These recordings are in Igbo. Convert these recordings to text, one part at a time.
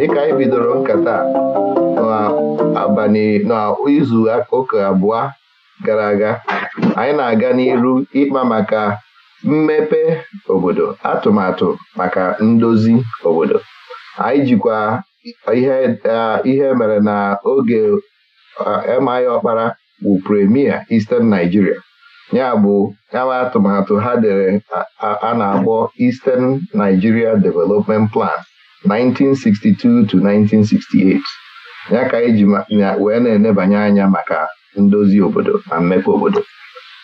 dịka anyị bidoro nkata abalị n'izu ụka abụọ gara aga anyị na-aga n'iru ịkpa maka mmepe obodo atụmatụ maka ndozi obodo anyị jikwa ihe mere na oge MI Ọkpara bụ premier Eastern Nigeria ya bụ yawa atụmatụ ha dere a na-akpọ Eastern Nigeria Development Plan 1962 to 1968 ya ka anyị e ji wee na-enebanye anya maka ndozi obodo na mmepe obodo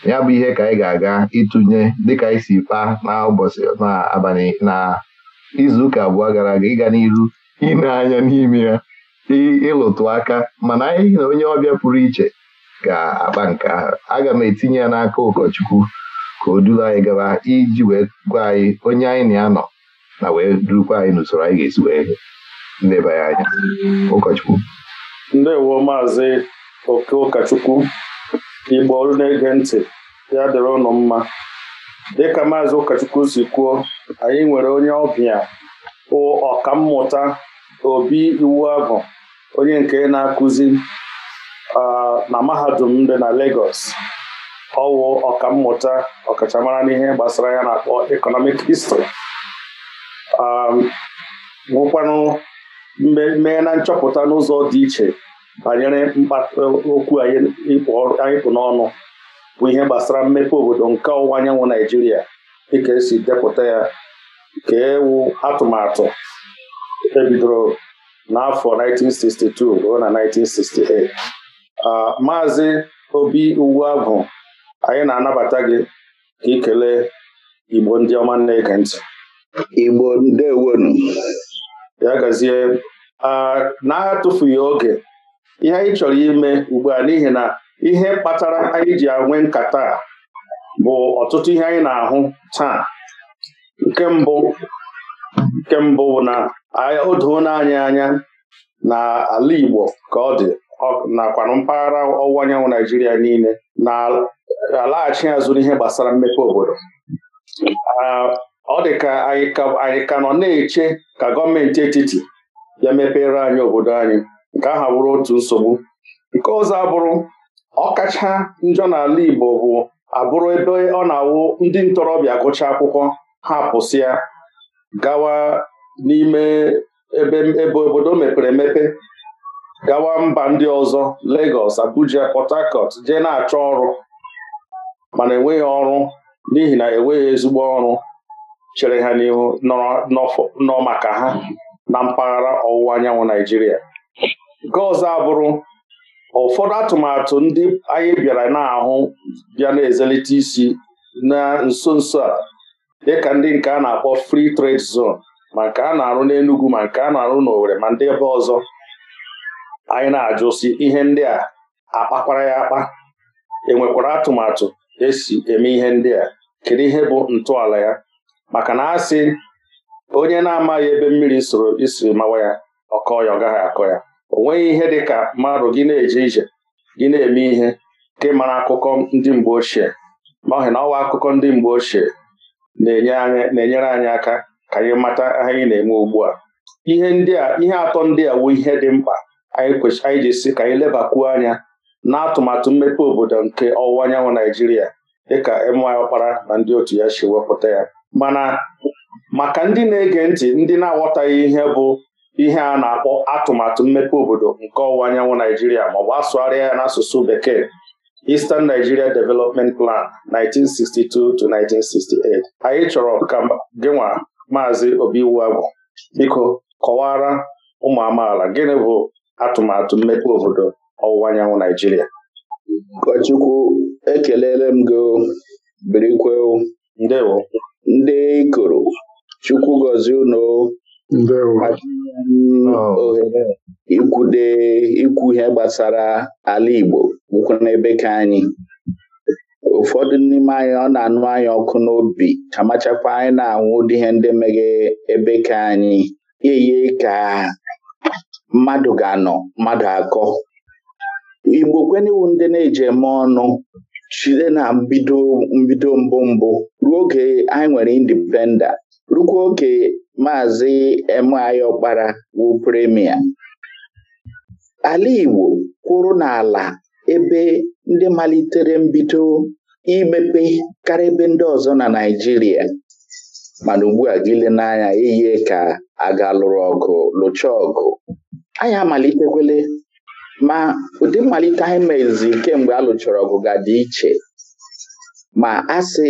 ya bụ ihe ka anyị ga-aga ịtụnye dịka anyị si kpaa n'ụbọchị n'abalị na izuụka abụọ gara aga ịga n'iru ile anya n'ime ya ịlụtụ aka mana anyị na onye ọbịa pụrụ iche ga-akpa nke ahụ aga m etinye ya n'aka ụkọchukwu ka o duru anyị gaba iji wee gwa anyị onye anyị na anọ na wee durukwa anyị n'usoro anyị ga-esi wee leba ya anya ụkọchukwu ndewo maazị oke ụkọchukwu igbo olu na-ege ntị ya dịrị ụnụ mma dịka maazị ụkọchukwu si kwuo anyị nwere onye ọbịa ọkammụta obi iwu abụ onye nke na-akụzi na mahadum dị na legos ọwụ ọkammụta ọkachamara n'ihe gbasara ya na-akpọ Ekọnọmik History Um, nwụkwanụ mee na nchọpụta n'ụzọ dị iche banyere e, okwu anyị pụ n'ọnụ bụ ihe gbasara mmepe obodo nke ọwụwa anyanwụ Naijiria dịka esi depụta ya ka ewu atụmatụ ebidoro n'afọ 1962 ruo na 1968 maazị Obi bụ anyị na-anabata gị ka ị Igbo ndị ọma nne ege ntị Igbo ndewonu ya gazie na-atụfughị oge ihe anyị chọrọ ime ugbu a n'ihi na ihe kpatara anyị ji enwe nkata bụ ọtụtụ ihe anyị na-ahụ taa nke mbụ nke mbụ na o doona anyị anya na ala Igbo ka ọ dị nakwanụ mpaghara ọwụwa anyanwụ Naijiria niile na-alaghachi azụ n'ihe gbasara mmepe obodo ọ dị ka anyị ka nọ na-eche ka gọọmenti etiti ya mepere anyị obodo anyị nke aha bụrụ otu nsogbu nke ọzọ abụrụ ọkacha njọ n'ala Igbo bụ abụrụ ebe ọ na-awụ ndị ntorobịa agụcha akwụkwọ ha pụsịa gawa n'ime ebe obodo mepere emepe gawa mba ndị ọzọ Lagos Abuja Port Harcourt jee na-achọ ọrụ mana enweghị ọrụ n'ihi na enweghị ezigbo ọrụ chere ha n'ihu nọ maka ha mm. na mpaghara ọwụwa anyanwụ Naijiria nke ọzọ abụrụ ụfọdụ atụmatụ ndị anyị bịara na-ahụ bịa na-ezelite isi na nso nso a dịka ndị nke a na-akpọ fri trade zon ma nke a na-arụ n'enugwu ma nke a na-arụ n'owere ma ndị ebe ọzọ anyị na-ajụsi ihe ndị a akpakwara ya akpa enwekwara atụmatụ esi eme ihe ndị a kedu ihe bụ ntọala ya maka na asị onye na-amaghị ebe mmiri soro isiri mawa ya ọkọ ya ọ gaghị akọ ya o nweghị ihe dị ka mmadụ gị na-eje ije gị na-eme ihe nke mara akụkọ ndị mgbe ochie n'ọhị na ọwa akụkọ ndị mgbe ochie na-enyere anyị aka ka anyị mata anyị na-eme ugbu a ihe ndị a ihe atọ ndị a wu ihe dị mkpa anyị ji si ka anyị lebakwuo anya n'atụmatụ mmepe obodo nke ọwụwa anyanwụ Naijiria dịka anyị ọkpara na ndị otu ya si wepụta ya mana maka ndị na-ege ntị ndị na-aghọtaghị ihe bụ ihe a na-akpọ atụmatụ mmepe obodo nke ọwụwa anyanwụ Naijiria maọbụ asụgharịa ya asụsụ bekee Eastern Nigeria Development Plan 1962 1968 anyị chọrọ ka gịnwa Maazị Obiwuagwu biko kọwara ụmụ amaala gịnị bụ atụmatụ mmepe obodo ọwụwa anyanwụ Naijiria ụkọchukwu ekelele m gị birikwe ndewo ndị ikoro chukwu gozie unu oh. ohere ikwude ikwu ihe gbasara ala Igbo bụkwa n'ebe ka anyị ụfọdụ n'ime anyị ọ na-anụ anyị ọkụ n'obi kamachakwa anyị na-anwụ ụdị ihe ndị meghe ebe ka anyị eye ka mmadụ ga-anọ mmadụ akọ Igbo kwenewu ndị na-eji eme ọnụ Chide na mbido mbido mbụ mbụ ruo oge anyị nwere indipenda rukwa oge maazị Emeaghi Ọkpara wụ premia ala Igbo kwụrụ n'ala ebe ndị malitere mbido imepe karịa ebe ndị ọzọ na Naịjirịa mana ugbu a gịle n'anya ihe ka a ga lụrụ ọgụ lụcha ọgụ anyị amalitekwele ma ụdị mmalite anyị mezi kemgbe a lụchara ọgụ ga dị iche ma a sị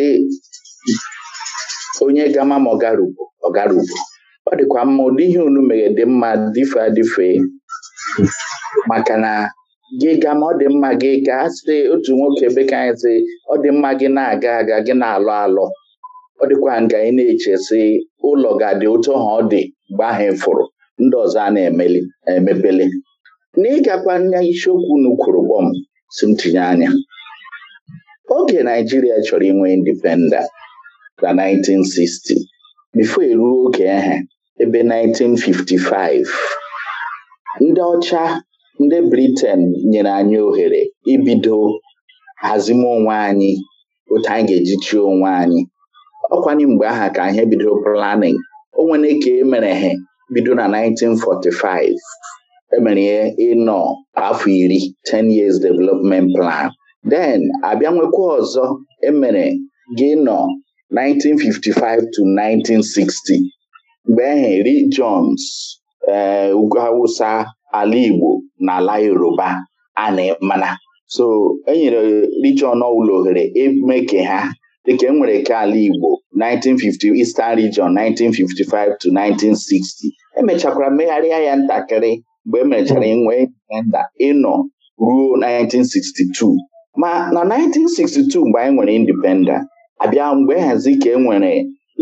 onye gama ma ọgarugbo ọgarugbo ọ dịkwa mma ụdị ihe unu mere dị mma dife adịfe maka na gị ga ma ọ dị mma gị ka a sị otu nwoke bekee anyị sị ọ dị mma gị na-aga aga gị na-alọ alọ ọ dịkwa nga ị na-eche sị ụlọ ga-adị otu ha ọ dị mgbe ahụ ịfụrụ ndị ọzọ a na-emepele N'ịgakwa ịgakwa isiokwu unu kwụrụ kpọm um, si m tinye anya oge Naijiria chọrọ inwe indipenda na 1960 bifo eruo oge ehe ebe 1955 ndị ọcha ndị briten nyere anyị ohere ibido hazime onwe anyị otu anyị ga-eji chie onwe anyị ọkwanye mgbe aha ka ihe bidoro planning onwere ka e mere he bido na 1945 emere ịnọ afọ iri 10 years development plan then abịa nwekwa ọzọ emere gị nọ 1955 to 1960 mgbe ehe Lee ụgbọ ala Igbo na ala Yoruba ana e, mana so enyere Lee John ọwụla ohere emeke ha dịka enwere ka ala Igbo 1950 Eastern Region 1955 to 1960 emechakwara mmegharịa ya ntakịrị mgbe emechara inwe mm-hmm. e indipenda ịnọ ruo 1962 ma na 1962 mgbe anyị nwere indipenda abịa mgbe e hazi ka e nwere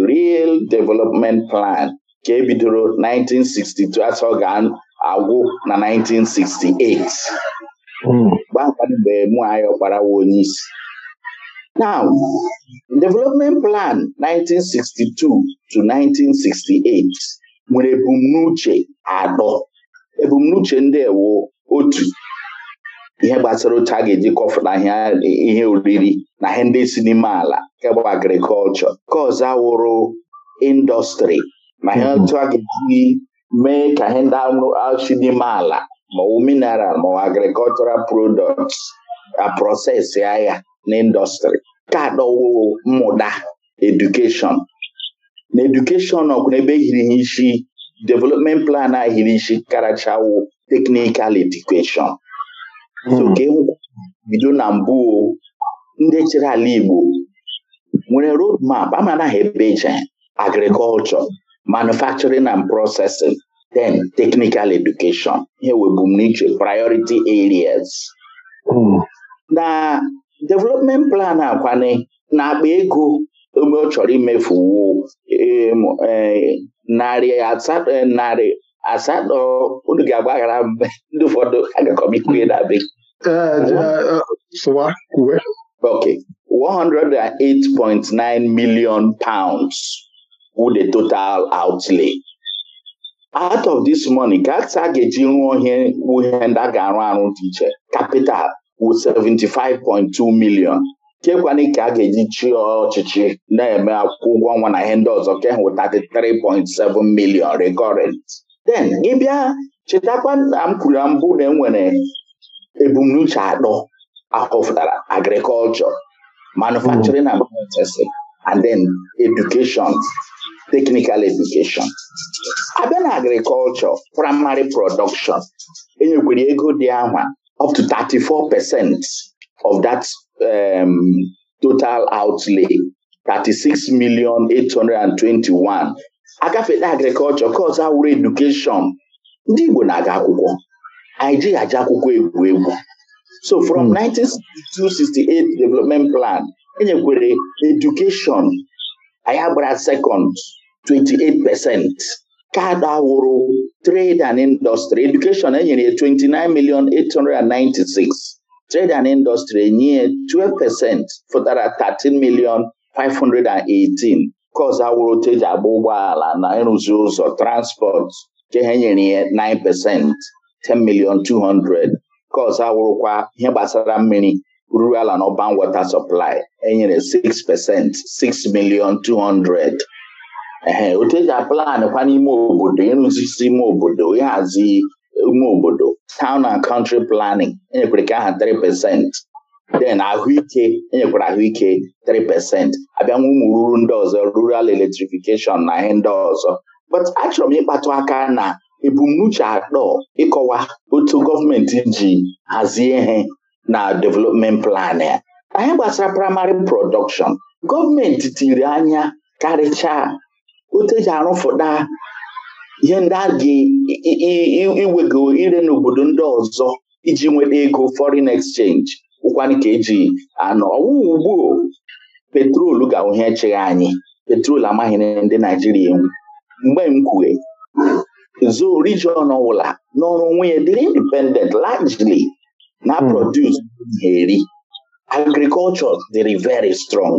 Real Development Plan ka ebidoro 1962 asọ ga-agwụ na 1968 mm. gbaa mgbe mụ anyị ọkparawa onye isi Now, Development Plan 1962 to 1968 nwere ebumnuche atọ ebumnuche ndị ewu otu ihe gbasara otu a ga-eji kọfụta ihe oriri na ihe ndị si n'ime ala nke bụ agrikọlchọ nke ọzọ wụrụ indọstrị na ihe mm-hmm. otu a ga-eji mee ka ihe ndị si n'ime ala maọwụ mineral maọwụ agrikọlchọral prodọkt aprọsesị ahịa na indọstrị nke adọwoo mmụta edukeshọn na edukeshọn ọkwụ n'ebe e hiri ihe isi development plan ahịrịshi karachawo teknikal edukeshọn so bido mm. na mbụ ndị chere ala Igbo nwere road map amana ha ebe eje agriculture manufacturing and processing then technical education ihe webumnuche priority areas mm. na development plan akwani na-akpa ego ebe ọ chọrọ imefu narị eh, narị asatọ unu ga-agbaghara mgbe ndị ụfọdụ agakọm ikwunye na eh, eh, Ok, 108.9 million pounds wụ the total outlay. Out of this money, ka ga-eji rụọ ihe ndị a ga-arụ arụ dị iche capital wụ 75.2 million kekwanị ka a ga-eji chịa ọchịchị na-eme akwụkwọ ụgwọ ọnwa na ihe ndị ọzọ ka e hụ 33.7 milion recurrent then ị bịa chetakwa na m kwuru na mbụ na enwere ebumnuche atọ ahọpụtara agriculture manufacturing and processing and then education technical education abịa na agriculture primary production enyekwere ego dị anwa up to 34 of that um, total outlay 36 million 821 agafela agriculture kọz awụrụ education ndị Igbo na-aga akwụkwọ anyị jighị akwụkwọ egwu egwu so from 1968 hmm. development plan enyekwere education, anyị second 28 percent awụrụ trade and industry education enyere ya 29 million 896 Trade and Industry enye 12 pesent fụtara 13 million 518 ka ọzọ wụrụ e agba ụgbọala na ịrụzi ụzọ transport nke ha nyere ya 9 pesent 10 million 200 ka awụrụkwa wụrụkwa ihe gbasara mmiri rural and urban water supply enyere 6 pesent 6 million 200 ehe oteji aplan kwa n'ime obodo ịrụzisi ime obodo ịhazi ime obodo town and country planning enyekwere nke aha 3 pasent ahụike enyekwara ahụike 3 pasent abịanwa ụmụ ruru ndị ọzọ rural electrification na ihe ndị ọzọ but achọrọ m ịkpatụ aka na ebumnuche atọ ịkọwa otu gọọmenti ji hazie ihe na development plan ya anyị gbasara primary production gọọmenti tiri anya karịchaa otu eji arụfụta ihe ndị a ga-iwego ire n'obodo ndị ọzọ iji nweta ego foreign exchange ụkwanụ ka eji anọ ọwụwa ugbu petrol ga-ahụhe echeghị anyị petrol amaghị ndị Naijiria enwe. mgbe m kwue zoo region ọbụla n'ọrụ onwe ya dịrị independent largely na produce na-eri hmm. agriculture dịrị very strong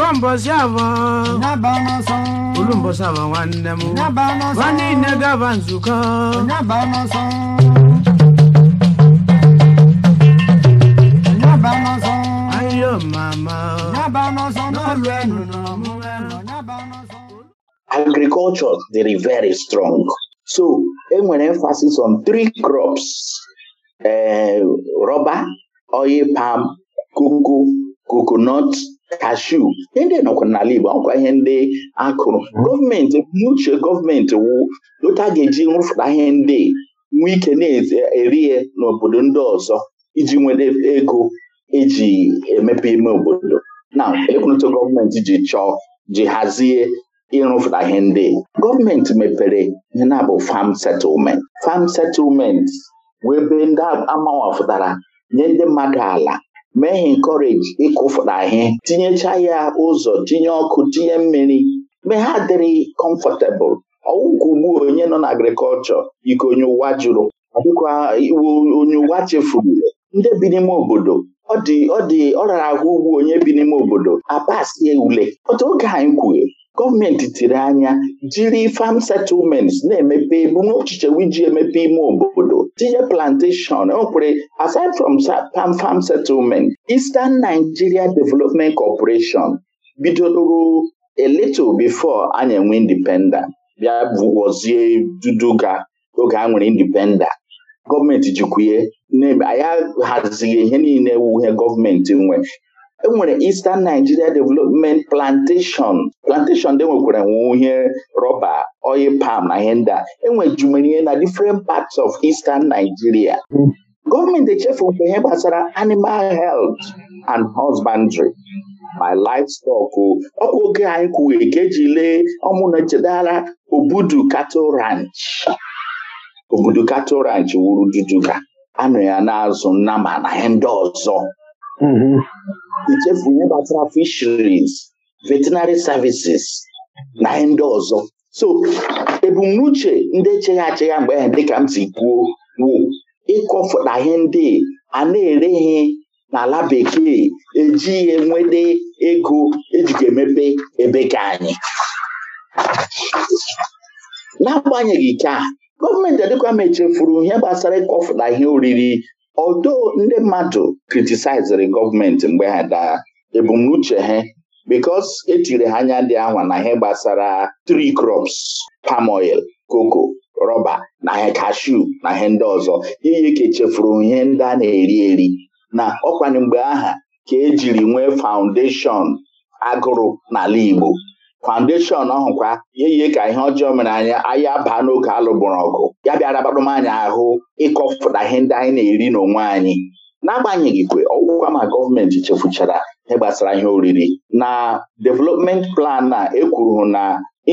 Oko mbọsị abọ nwanne m nwanne nzukọ dịrị very strong so enwere emphasis on three crops ee eh, rọba oil palm koko coconut kashu ndị nọkwa n'ala Igbo ọkwa ihe ndị akụrụ hmm. gọọmenti uche gọọmenti wụ otu ga-eji nrụfụta ihe ndị nwee ike na-eri n'obodo ndị ọzọ iji nwere ego eji emepe ime obodo na ekwunuto gọọmenti ji chọọ ji hazie ịrụfụta ihe ndị gọọmenti mepere ihe na-abụ fam settlement fam settlement wee ebe ndị amawafụtara nye ndị mmadụ ala mee ha encourage ịkụfụta ahịa tinyecha ya ụzọ tinye ọkụ tinye mmiri mgbe ha dịrị comfortable ọwụkwugbu onye nọ na agrikọlchọ ike onye ụwa jụrụ onye ụwa chefuru ndị bi n'ime obodo ọ dị ọ rara ahụ ugwu onye bi n'ime obodo apasie ule otu oge anyị kwughị gọọmenti tiri anya jiri farm settlements na-emepe ebumnuche iji emepe ime obodo tinye plantation okwere e aside from pam farm settlement Eastern Nigeria Development Corporation bidoro a little before enwe independent bịa bụgozie duduga oge a nwere indipendent gọọmenti jikwuye ya hazighị ihe niile wuhe gọọmenti nwe enwere Eastern Nigeria Development Plantation plantation dị e nwekwara nwe ihe rọba oil palm na ihe ndị a e na different parts of Eastern Nigeria gọọmenti echefukwa ihe gbasara animal health and husbandry my livestock ọkwa oge anyị kwuwe ka eji lee ọmụna chedara Obudu Cattle Ranch Obudu Cattle Ranch wuru Duduka anọ ya na-azụ nnama na ihe ndị ọzọ mm-hmm. echefu ihe gbasara fisheries veterinary services na ndị ọzọ so ebumnuche ndị echegha achegha mgbe ahụ dịka m si kwuo wụ ịkọfụta ihe ndị a na-ereghị n'ala bekee eji ihe nwede ego ejiga emepe ebe ka anyị n'agbanyeghị ike a gọọmenti adịkwa m echefuru ihe gbasara ịkọfụta ihe oriri odo ndị mmadụ kritisaiziri gọọmenti mgbe ha daa ebumnuche ha bikos etiri ha anya dị anwa na ihe gbasara tri crops palm oil koko rọba na ha kashu na ihe ndị ọzọ iyi ka echefuru ihe ndị a na-eri eri na ọkwanye mgbe aha ka ejiri nwee faụndeshọn agụrụ n'ala Igbo foundation ọhụkwa ihe yie ka ihe ọjọọ mere anyị anyị baa n'oge alụgboro ọgụ ya bịara gbarụ anyị ahụ ịkọfụta ihe ndị anyị na-eri n'onwe anyị n'agbanyeghị kwe ọgwụkwa ma gọọmenti chefuchara ihe gbasara ihe oriri na development plan na ekwuru na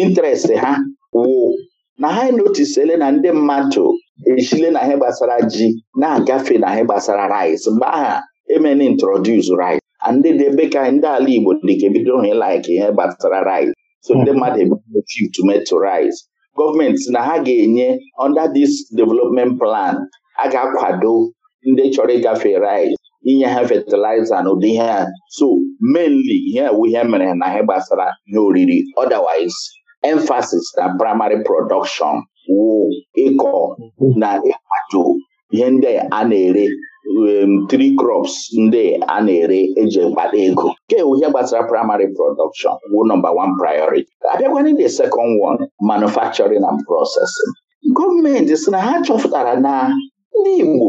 interest ha wụ na ha notisele na ndị mmadụ esile na ihe gbasara ji na-agafe na ihe gbasara rice mgbe aha emeni introduce rice ndị dị ebe ka ndị ala Igbo dịka ebido hụ ihe gbasara rice so ndị mmadụ ebido shift tomato rice gọọmenti na ha ga-enye under dis development plan a ga-akwado ndị chọrọ ịgafe rice inye ha fertilizer na ụdị ihe ha so mainly ihe ihe mere na ihe gbasara ihe oriri otherwise emphasis na primary production wụ ịkọ hmm. na ịkwado ihe ndị a na-ere Um, three crops ndị a na-ere eji mkpata ego nke ihe gbasara primary production wu nọmba one priority abịagwana the second one manufacturing and processing gọọmenti si na ha chọpụtara na ndị Igbo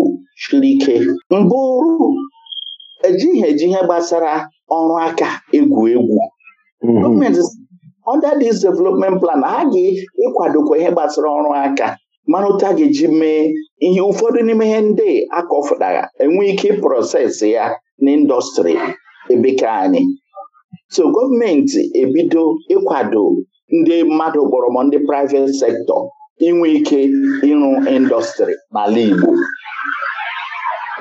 chiri ike mbụrụ ejighị eji ihe gbasara ọrụ aka egwu egwu mm-hmm. gọọmenti under this development plan ha ga-ịkwadokwa ihe gbasara ọrụ aka mana otu a ga-eji mee ihe ụfọdụ n'ime ihe ndị akọfụtara enwe ike prọsesị ya n'ịndọstrị ebeka anyị so gọọmenti ebido ịkwado ndị mmadụ kpọrọ ndị private sektọ inwe ike ịrụ indọstrị n'ala Igbo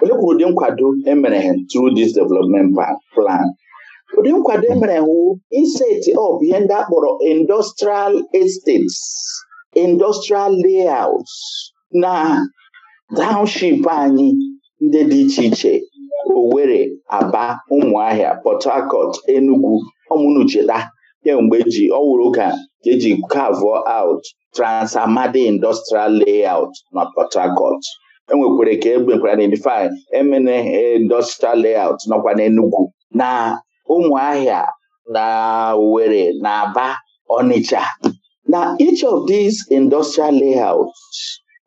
olekwuru ụdị nkwado emere through dis development plan ụdị nkwado emere wụ iseti up ihe ndị akpọrọ industrial estates industrial layouts na Township anyị ndị dị iche iche were Aba, Ụmụahịa, Port Harcourt, Enugu ọmụnucheta kemgbe e ji ọwụrụ oge ka eji carve out trans Industrial Layout na Port Harcourt enwekwere ka egbekwara na edify emene Industrial Layout nọkwa n'Enugu na Ụmụahịa na owere na Aba Onitsha na each of these industrial layouts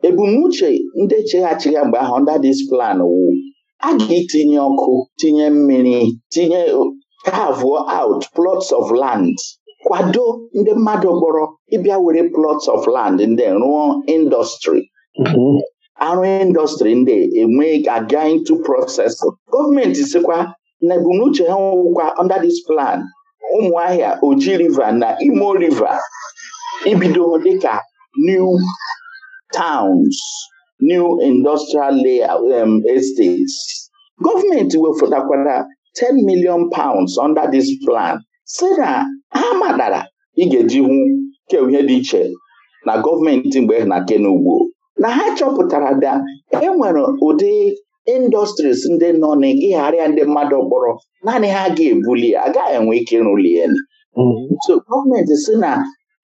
ebumnuche ndị cheghachighị mgbe ahụ under this plan wụ aga ga ọkụ tinye mmiri tinye carve out plots of land kwado ndị mmadụ gbọrọ ịbịa were plots of land ndị rụọ indọstrị mm-hmm. arụ indọstrị ndị enwe aga into process gọọmenti sikwa na ebumnuche ha nwụkwa under this plan ụmụahịa oji river na imo river ibido dịka new towns new industrial layer, um, estates gọọmenti wefọtakwara 10 million pounds under this plan si na ha madara ị ga-eji hụ keihe dị iche na gọọmenti mgbe na kenugbo na ha chọpụtara da enwere ụdị industries ndị nọ n'ịgharịa ndị mmadụ kpọrọ naanị ha ga-ebuli agaghị enwe ike ịrụli ya mm-hmm. so gọọmenti si na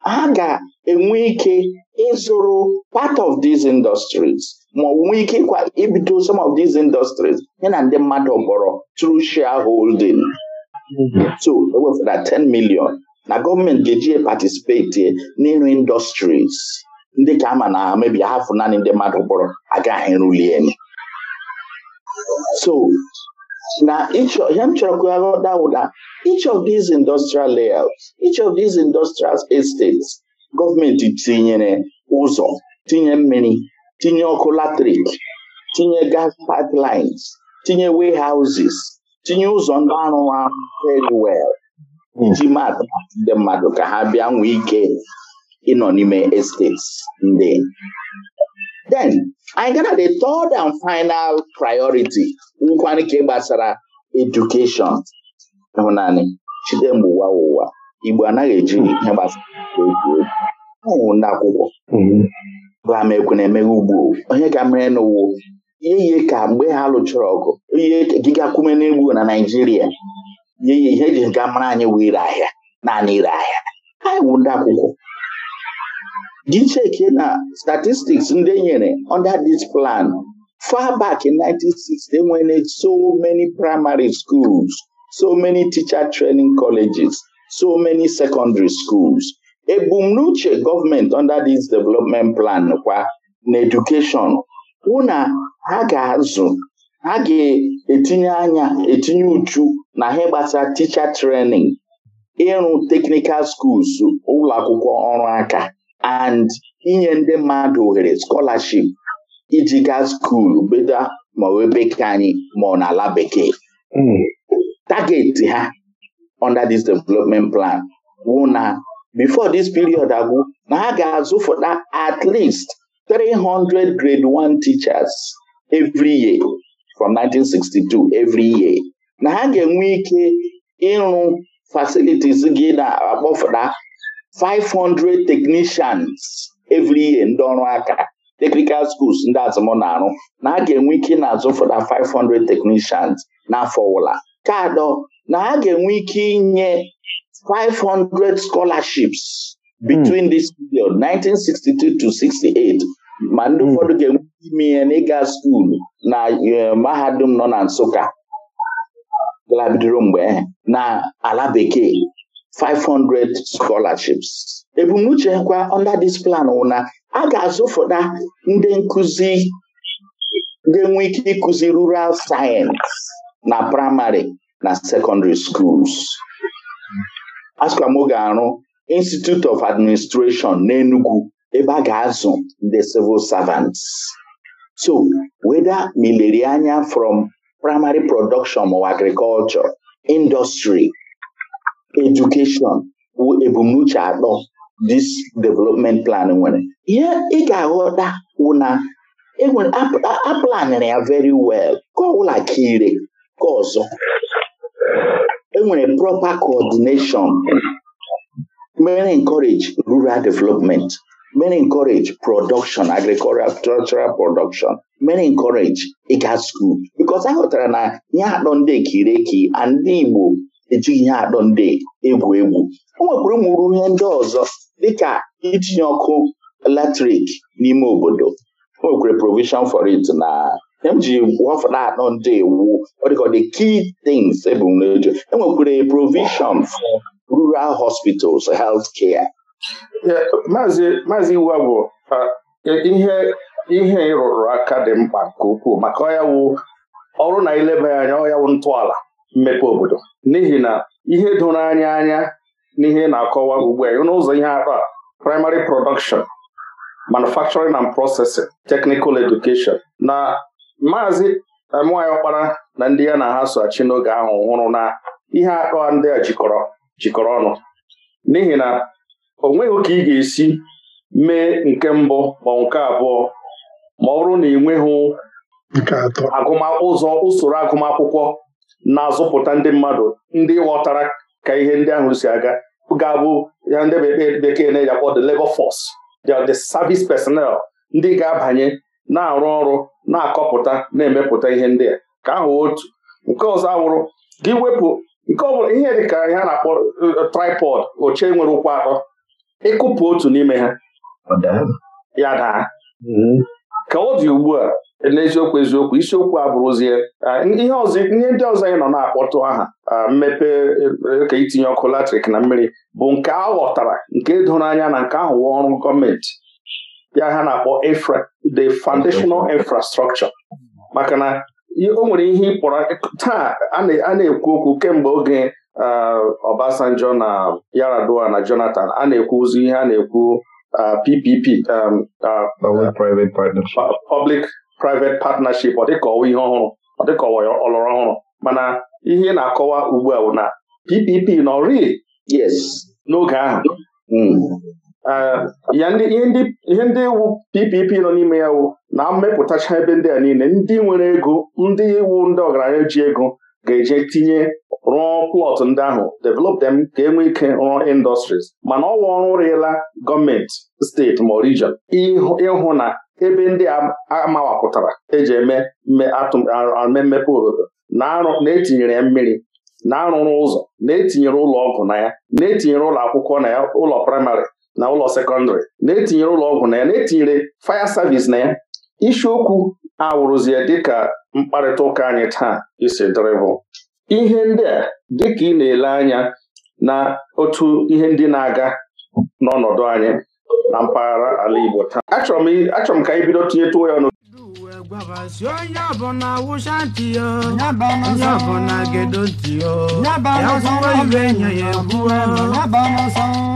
ha ga-enwe ike ịzụrụ part of these industries ma onwe ike ịkwa ibido some of these industries ya na ndị mmadụ mkpọrọ through shareholding so ewefere 10 million na gọọmenti ga-eji patisipeti n'ịrụ industries ndị ka ama na mebi hafụ naanị ndị mmadụ gbọrọ agaghị ruli enyi so na ya m chọrọ ka aghọta each of these industrial layouts each of these industrial estates gọọmenti tinyere ụzọ tinye mmiri tinye ọkụ latrik tinye gas pipelines tinye houses, tinye ụzọ ndị arụ arụ very well iji hmm. maatụ ndị mmadụ ka ha bịa nwee eh, ike ịnọ n'ime estates ndị then anyị ga na the third and final priority nwụkwana nke gbasara edukeshọn ịhụnanị chide ụwa ụwa Igbo anaghị eji ihe gbasara egwu ndị akwụkwọ mm-hmm. na emeghe ugbo onye ga mere n'ụwa ihe ka mgbe ha lụchara ọgụ ihe gịgakwume n'egwu na Naịjirịa ihe ji ga mara anyị wụ ire ahịa naanị ire ahịa anyị wụ ndị akwụkwọ Dị iche Gicheke na statistics ndị enyere under this plan far back in 1960 enwere so many primary schools so many teacher training colleges so many secondary schools ebumnuche gọọmenti under this development plan kwa na education hụ na ha ga-azụ ha ga-etinye anya etinye uchu na ha gbasara teacher training ịrụ technical schools ụlọ akwụkwọ ọrụ aka and inye ndị mmadụ ohere scholarship iji gaa skuulu bedo ma wee bekee anyị ma ọ n'ala bekee hmm. target ha under this development plan wụ na before this period agwụ na ha ga-azụfụta at least 300 grade 1 teachers every year from 1962 every year na ha ga-enwe ike ịrụ facilities gị na-akpọfụta 500 technicians every year ndị ọrụ aka technical schools ndị azụmọ na-arụ na a ga-enwe ike na-azụ 500 technicians n'afọ ọbụla ka adọ na a ga-enwe ike inye 500 scholarships between mm. this period 1962 to 68 ma ndị hmm. ụfọdụ ga-enwe ime ihe n'ịga skuulu na eh, mahadum nọ na Nsụka galabidoro mgbe na ala bekee 500 scholarships ebumnuche kwa under this plan wụ na a ga-azụfụta ndị nkụzi ga-enwe ike ịkụzi rural science na primary na secondary schools asụkwa m ga-arụ Institute of Administration Enugu ebe a ga-azụ ndị civil servants so weda mileri anya from primary production or agriculture industry edukeshọn bụ ebumnuche atọ dis development plan nwere ihe ị ga-aghọta wụ na e aplanịrị ya very well ka ọbụla ka ire ka ọzọ enwere proper coordination mere encourage rural development mere encourage production agricultural production mere encourage ịga school because a na ihe atọ ndị ekireki and ndị Igbo eji ihe adọ ndị egwu egwu o nwekwara ụmụrụ ihe ndị ọzọ dịka itinye ọkụ eletrik n'ime obodo o nwekwara provision for it na m e ji wafụta anọ ndị iwu the key things ebumnobi enwekwara provision for rural hospitals health care maazị iwu bụ e, ihe ihe ịrụrụ aka dị mkpa nke ukwuu maka ọya wụ ọrụ na ileba anya ọya wụ ntọala mmepe obodo n'ihi na ihe doro anya anya n'ihe na-akọwa ugbu a n'ụzọ ihe akpa a primary production manufacturing and processing technical education na maazị eh, Amuyi Okpara na ndị ya na ha soachi n'oge ahụ hụrụ na ihe akpa ndị a jikọrọ jikọrọ ọnụ n'ihi na o nweghị ka ị ga-esi mee nke mbụ ma nke abụọ ma ọ bụrụ na ị nweghị agụmakwụkwọ usoro agụmakwụkwọ na-azụpụta ndị mmadụ ndị ghọtara ka ihe ndị ahụ si aga ga-abụ ya ndị bekee na-eji akpọ the labor force the service personnel ndị ga-abanye na-arụ ọrụ na-akọpụta na-emepụta ihe ndị a ka ahụ otu nke ọzọ awụrụ gị wepụ nke ọ ihe dịka ihe a na-akpọ uh, tripod oche nwere ụkwụ atọ ịkụpụ otu n'ime ha ya daa mm-hmm. ka ọ dị ugbu a n'eziokwu eziokwu isiokwu a bụrụzie ihe ndị ọzọ anyị nọ na-akpọtụ aha mmepe e, ka itinye ọkụ latrik na mmiri bụ nke a ghọtara nke doro anya na nke ahụ ọrụ gọọmenti ya ha na-akpọ the foundational infrastructure maka na o nwere ihe ịkpọrọ taa a na-ekwu okwu kemgbe oge Obasanjo na Yaradua na Jonathan a na-ekwuzi ihe a na-ekwu PPP um, public private partnership ọ ọwa ihe ọhụrụ ọ dịka ọhụrụ mana ihe na-akọwa ugbu a bụ na PPP nọ rịị n'oge ahụ mm. ya ihe ndị wu PPP nọ n'ime ya wu na mmepụtacha ebe ndị a niile ndị nwere ego ndị iwu ndị ọgaranya ji ego ga-eje tinye rụọ plọt ndị ahụ develop them ka e nwee ike rụọ industries mana ọwa ọrụ rịla gọọmenti steeti ma region ịhụ na ebe ndị a eji eme mmepe obodo na-etinyere ya mmiri na-arụrụ ụzọ na-etinyere ụlọ ọgwụ na ya na-etinyere ụlọ akwụkwọ na ya ụlọ praịmarị na ụlọ sekọndịrị na-etinyere ụlọ ọgwụ na ya na-etinyere faya savis na ya isiokwu awụrụzie dịka mkparịta ụka anyị taa isi dịrịbụ ihe ndị a dịka ị na-ele anya na otu ihe ndị na-aga n'ọnọdụ anyị na mpaghara ala Igbo taa achọrọ m ka anyị bido tinye ya ọnụ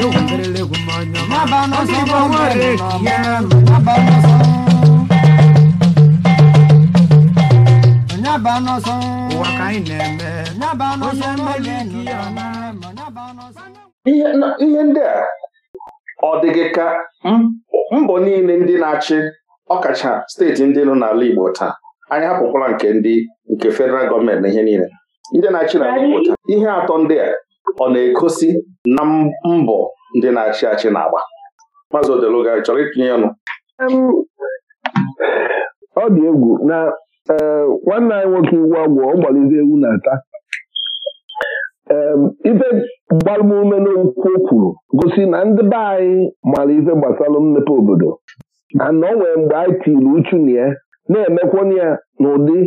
yokuperele ihe ndị a ọ dị ka mbọ niile ndị na-achị ọkacha steeti ndị nọ n'ala Igbo taa anyị hapụkwala nke ndị nke federal gọọmenti na ihe niile ndị na-achị n'ala Igbo taa ihe atọ ndị a ọ na-egosi na mbọ ndị na-achị achị na-agba maazị Odeluga chọrọ itinye ọnụ ọ dị egwu na eh, nwanne anyị nwoke iwu agwụ ọ gbalizi ewu na-ata ife gbalụm n'okwu o kwuru gosi na ndị be anyị mara ife gbasara mmepe obodo na o nwere mgbe anyị tiri uchu na ya na-emekwana ya n'ụdị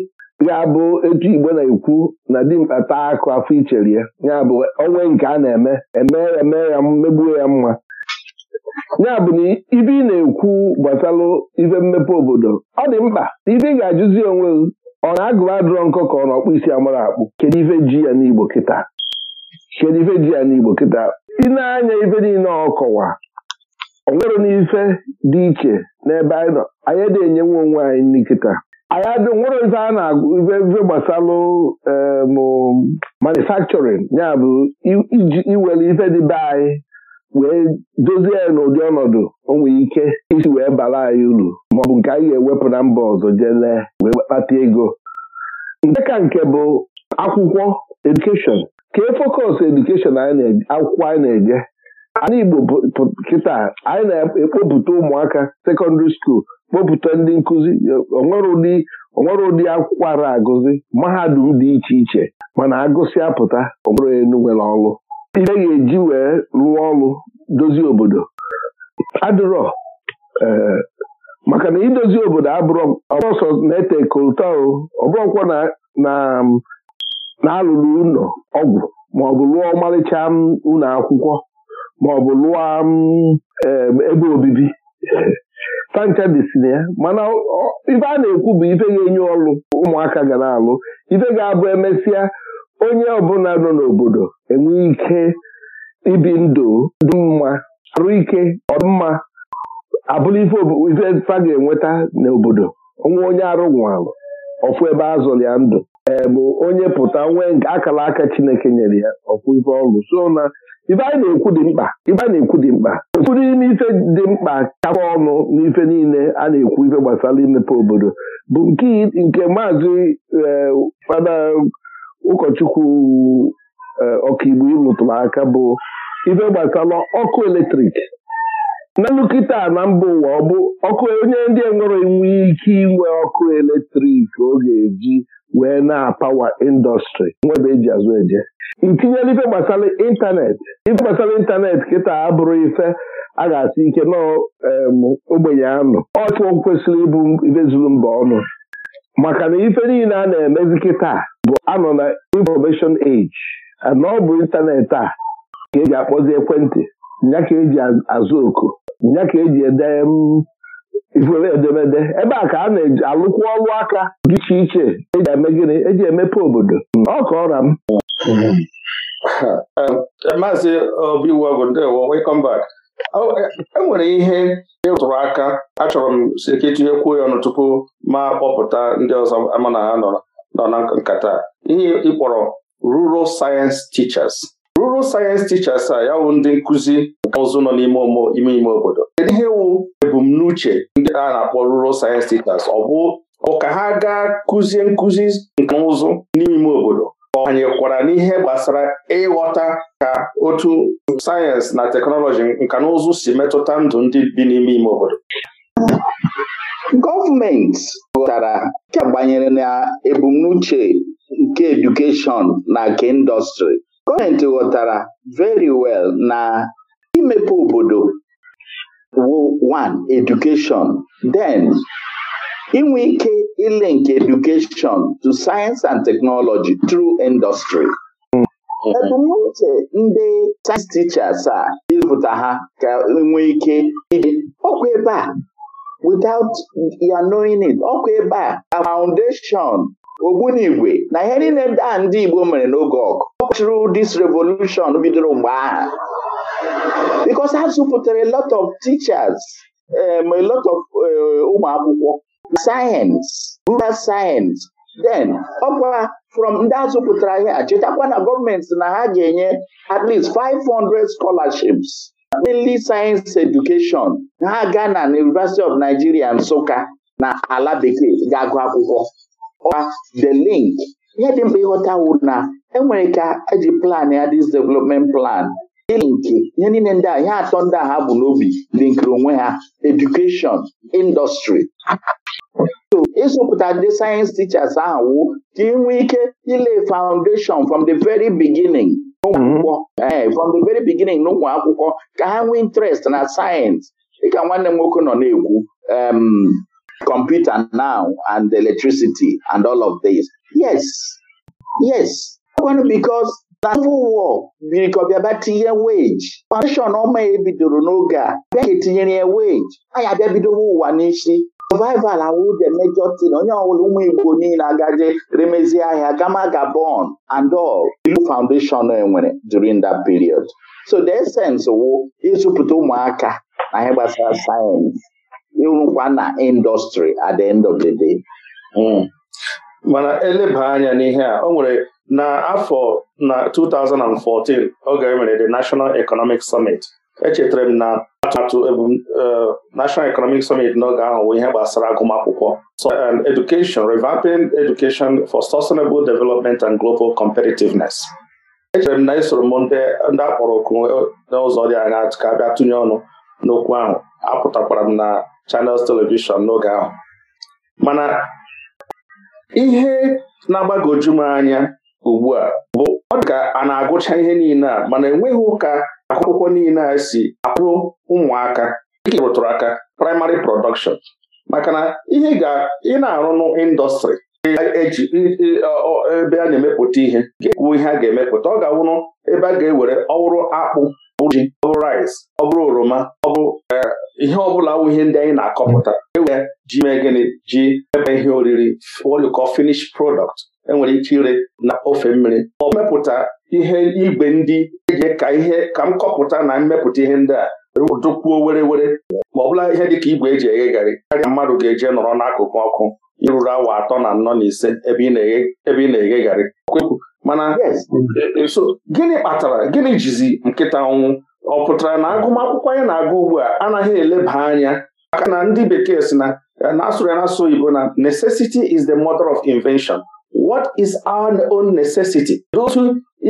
ya bụ etu igbo na-ekwu na dimkpa taa akụ afọ iche ya ya bụ onwe nke a na-eme eme eme ya megbuo ya mma ya bụ na ibe ị na-ekwu gbasalụ ibe mmepe obodo ọ dị mkpa ibe ị ga-ajụzi onwe ọ na-agụba adụrọ nkọ ka ọ na ọkpụ isi akpụ kedu ife ji ya n'igbo kịta kedu ife ji ya n'igbo kịta ị na-anya ife niile ọkọwa o nwere n'ife dị iche n'ebe anyị nọ anyị dị enyenwe onwe anyị nkịta anyị nwere ife a na-agụ ife gbasalụ e, manufacturing ya bụ iji iwere ife dị be anyị wee dozie n'ụdị ọnọdụ o ike isi wee bara anyị uru maọbụ nke anyị ga-ewepụ na mba ọzọ jee wee kpata ego nke ka nke bụ akwụkwọ edukeshọn ka e fokọs edukeshọn akwụkwọ anyị na-eje ala Igbo kịta anyị na-ekpopụta ụmụaka sekọndịrị skuul kpọpụta ndị nkụzi onwere ụdị onwere ụdị akwụkwọ ara agụzi mahadum dị iche iche mana agụsị apụta onwere enu nwere ọlụ ihe ga-eji wee rụọ ọrụ dozie obodo adịrọ eh, maka na idozi obodo abụrụ ọsọ na-ete kolta ọbụrụkwa na-alụrụ ụlọ ọgwụ maọbụ lụọ ọmarịcha ụlọ akwụkwọ maọbụ lụọ eh, ebe obibi panchadị si na ya mana ife a na-ekwu bụ ife ga-enye ọlụ ụmụaka ga na-alụ ife ga-abụ emesịa onye ọbụla nọ n'obodo enwe ike ibi ndụ dị mma arụ ike ọdịmma abụrụ ife fa ga-enweta n'obodo onwe onye arụ nwalụ ọfụ ebe a zụrụ ya ndụ ee bụ onye pụta nwee nke akara aka Chineke nyere ya ọfụ ife ọlụ so na ibe anyị na-ekwu dị mkpa ibe anyị na-ekwu dị mkpa ụfọdụ n'ime ife dị mkpa kakwa ọnụ n'ife niile a na-ekwu ife gbasara imepe obodo bụ nke maazị eh, fada ụkọchukwu eh, ọkaigbo ịlụtụrụ aka bụ ife gbasara ọkụ eletrik n'elu kịta na mba ụwa ọ bụ ọkụ onye ndị enwere inwe ike inwe ọkụ eletrik ọ ga-eji wee na-apawa indọstrị nwebe eji azụ eje tinyela ife gbasara ịntanetị ife gbasara ịntanetị kịta abụrụ ife a ga-asị ike ogbenye anụ ọtụ kwesịrị ịbụ ife zuru mba ọnụ maka na ife niile a na-emezi kịta bụ anọ na information age na ọ bụ ịntanetị a ka eji akpọzi ekwentị nya ka eji azụ oku nya ka eji ede ifere edemede ebe a ka a na-alụkwa ọlụ aka dị iche iche eji eme gịnị eji emepe obodo ọ ọra m Hm. maazị obiwọgụ ndewo welcome back oh, enwere ihe ịrụtụrụ e aka achọrọ m si ka etinyekwuo ya ọnụ tupu ma kpọpụta ndị ọzọ ama na ha nọ na nkata ihe ịkpọrọ rural science teachers rural science teachers a ya wụ ndị nkụzi nke ụzụ nọ n'ime ime ime obodo kedu ihe wụ ebumnuche ndị a na-akpọ rural science teachers ọ bụ ka ha gaa kụzie nkụzi nke ụzụ n'ime ime obodo banyekwara n'ihe gbasara ịghọta ka otu sayensị na teknọlọji nka na ụzụ si metụta ndụ ndị bi n'ime ime obodo gọọmenti ghọtara agbanyere na ebumnuche nke edukeshọn na nke indọstrị gọọmenti ghọtara very well na imepe obodo wo Edukeshọn den. inwe ike nke education to science and technology through industry ebumnuche ndị sayensị tichers a ịzụta ha ka enwee ike iji. ọkwa ebe a without ya knowing it ọkwa ebe a foundation ogbunigwe na ihe niile a ndị Igbo mere n'oge ọgụ through dis revolution bidoro mgbe ahụ. because ha zụpụtara a lot of teachers um, a lot of um, ụmụ akwụkwọ sayensị rural sayensị den ọkwa from ndị azụ pụtara ihe chetakwa na gọọmenti na ha ga-enye at least 500 scholarships mainly science education ha ga na University of Nigeria Nsụka na ala bekee ga-agụ akwụkwọ the link ihe dị mkpa ịghọta wụ na enwere ka eji plan ya this development plan nke ihe niile ndị a ihe atọ ndị a ha bụ n'obi linkiri onwe ha edukeshọn indọstrị ịzụpụta ndị sayensị tichas ahụ ka ị ike ile foundation from the very beginning n'ụmụ mhm. akwụkwọ eh, from the very beginning n'ụmụ akwụkwọ ka ha nwee interest na sayensị dịka nwanne m nwoke nọ na-ekwu computer now and electricity and all of this yes yes because na civil war bịa tinye weji foundation ọma ya e ebidoro n'oge a bịa ga etinyere ya weji anyị abịa bidowo ụwa n'isi survival awụde mejọ tin onye ọbụla ụmụ igbo niile agaje remezie ahịa gama gabon and all ilu foundation enwere during that period so the essence wụ ịzụpụta ụmụaka na ihe gbasara sayensị ịrụkwa na indọstrị at the end of the day hmm. mana eleba anya n'ihe a o nwere n'afọ na 2014 oge e mere the National Economic Summit echetara m na atụmatụ e, National Economic Summit n'oge ahụ bụ ihe gbasara agụmakwụkwọ so and um, education revamping education for sustainable development and global competitiveness echere m na isoro m ndị akpọrọ oku n'ụzọ dị anya ka a tụnye ọnụ n'okwu ahụ apụtakwara m na Channels Television n'oge ahụ mana ihe na-agbagoju m anya ugbu a bụ ọ dị ka a na-agụcha ihe niile a mana enweghị ụka akwụkwọ niile a si akwụrụ ụmụaka dịka rụtụrụ aka praịmarị prọdọkshọn maka na ihe ị na arụnụ n'ịndọstrị eji ebe a na-emepụta ihe ga ihe a ga-emepụta ọ ga-awụrụ ebe a ga-ewere ọwụrụ akpụ ọbụrụ ji ọbụrụ rice ọbụrụ oroma ọbụ e, ihe ọbụla wụ ihe ndị anyị na-akọpụta ewere ji mee gịnị ji ebe ihe oriri woliko finish product enwere ike ire na ofe mmiri ọ mepụta ihe igwe ndị eji ka ihe ka m kọpụta na mmepụta ihe ndị a e dụkwuo were were ma ọ bụla ihe dịka igwe eji eghe garị karịa mmadụ ga-eje nọrọ n'akụkụ ọkụ iruru awa atọ na anọ na ise ebe ị na-eghe garị mana e, e, gịnị kpatara gịnị jizi nkịta ọnwụ ọ pụtara na agụmakwụkwọ anyị na-agụ ugbu a anaghị eleba anya maka na ndị bekee si na e, na-asụrụ ya asụ oyibo na necessity is the mother of invention what is our own necessity otu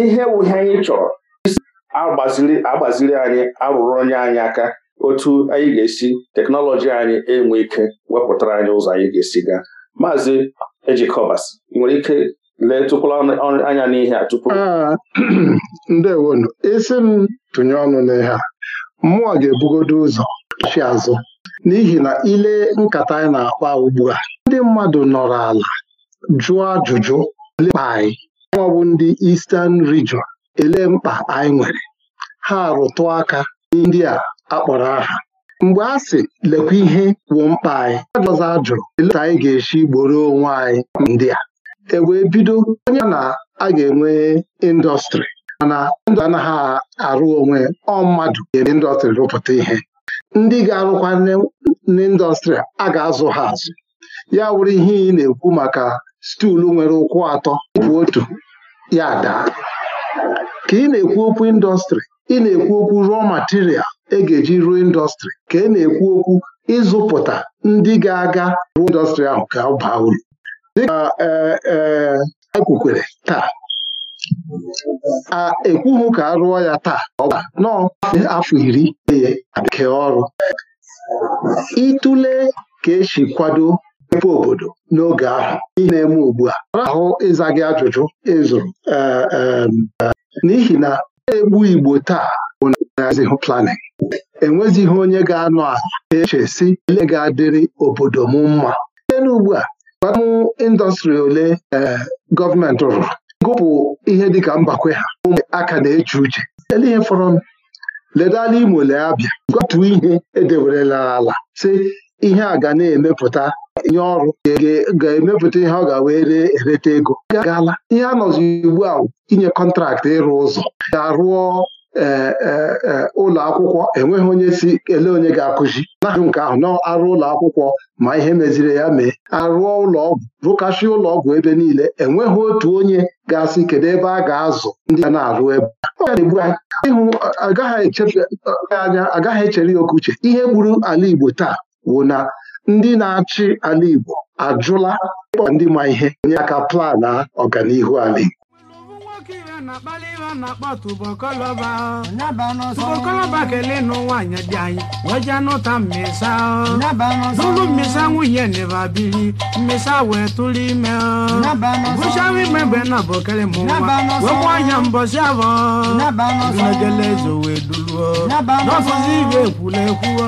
ihe wuhe anyị chọrọ agbaziri agbaziri anyị arụrụ onye anyị aka otu anyị ga-esi teknọlọji anyị enwe ike wepụtara anyị ụzọ anyị ga-esi gaa maazị ejikọbas nwere ike lee tụkwala anya n'ihe a tupu ah, ndewonu isi m tụnye ọnụ n'ihe a mmụọ ga-ebugodo ụzọ chi azụ n'ihi na ile nkata anyị na-akpa ugbu a ndị mmadụ nọrọ ala jụọ ajụjụ lekpa anyị ndị Eastern Region ele mkpa anyị nwere ha rụtụ aka ndị a akpọrọ aha mgbe a sị lekwa ihe wụ mkpa anyị ajụzụ ajụrụ elee ka anyị ga-esi gboro onwe anyị ndị a e wee bido onye na a ga-enwe indọstrị mana ndụ anaghị arụ onwe ọ mmadụ ga-eme indọstrị rụpụta ihe ndị ga-arụkwa n'indọstrị a ga-azụ ha azụ ya wụrụ ihe ị na-ekwu maka stuulu nwere ụkwụ atọ bụ otu ya daa ka ị na-ekwu okwu indọstrị ị na-ekwu okwu rụọ material e ga-eji ruo indọstrị ka e na-ekwu okwu ịzụpụta ndị ga-aga ruo indọstrị ahụ ka ọ baa uru dịka ekwukwere e, e taa a ekwughị ka a rụọ ya taa ọ bụ afọ iri ihe nke ọrụ ịtụle ka esi kwado mmepe obodo n'oge ahụ na-eme ugbu a ahụ ịza gị ajụjụ ịzụrụ e, n'ihi na egbu Igbo taa ụnazihụ planin enwezighị onye ga-anọ eche si ele ga-adịrị obodo m mma site n'ugbu a gwaamụ indọstrị ole eh, gọọmenti rụrụ gụpụ ihe dịka mbakwe ha aka na-eche uche ele ihe fọrọ ledala Imo lee abịa gwatu ihe edewerela ala si ihe a ga na-emepụta nye ọrụ ga-emepụta ihe ọ ga-wee ree ereta ego gaala ihe a nọzi ugbu a inye kọntraktị ịrụ ụzọ ga-arụọ E, e, ụlọ akwụkwọ enweghị onye si ele onye ga-akụzi na nke ahụ na-arụ ụlọ akwụkwọ ma ihe meziri ya mee arụọ ụlọ ọgwụ rụkashị ụlọ ọgwụ ebe niile enweghị otu onye ga-asị kedu ebe a ga-azụ ndị na-arụ ebe ịhụ agaghị echere ya oke uche ihe gburu ala Igbo taa bụ na ndị na-achị ala Igbo ajụla ndị ma ihe nye aka plan ọganihu ala Igbo na-akpali iwe a na-akpọ tubokoloba tubokoloba kele nụ nwaanyị dị anyị wee jee nụta mmesa n'ụlọ mmesa nwunye neba biri mmesa wee tụrụ ime bụchawa ime mgbe na bokele mụ nwa wekwa anya mbọsị abọ megele ezo wee duluo n'ọfụzi ibe ekwula ekwuo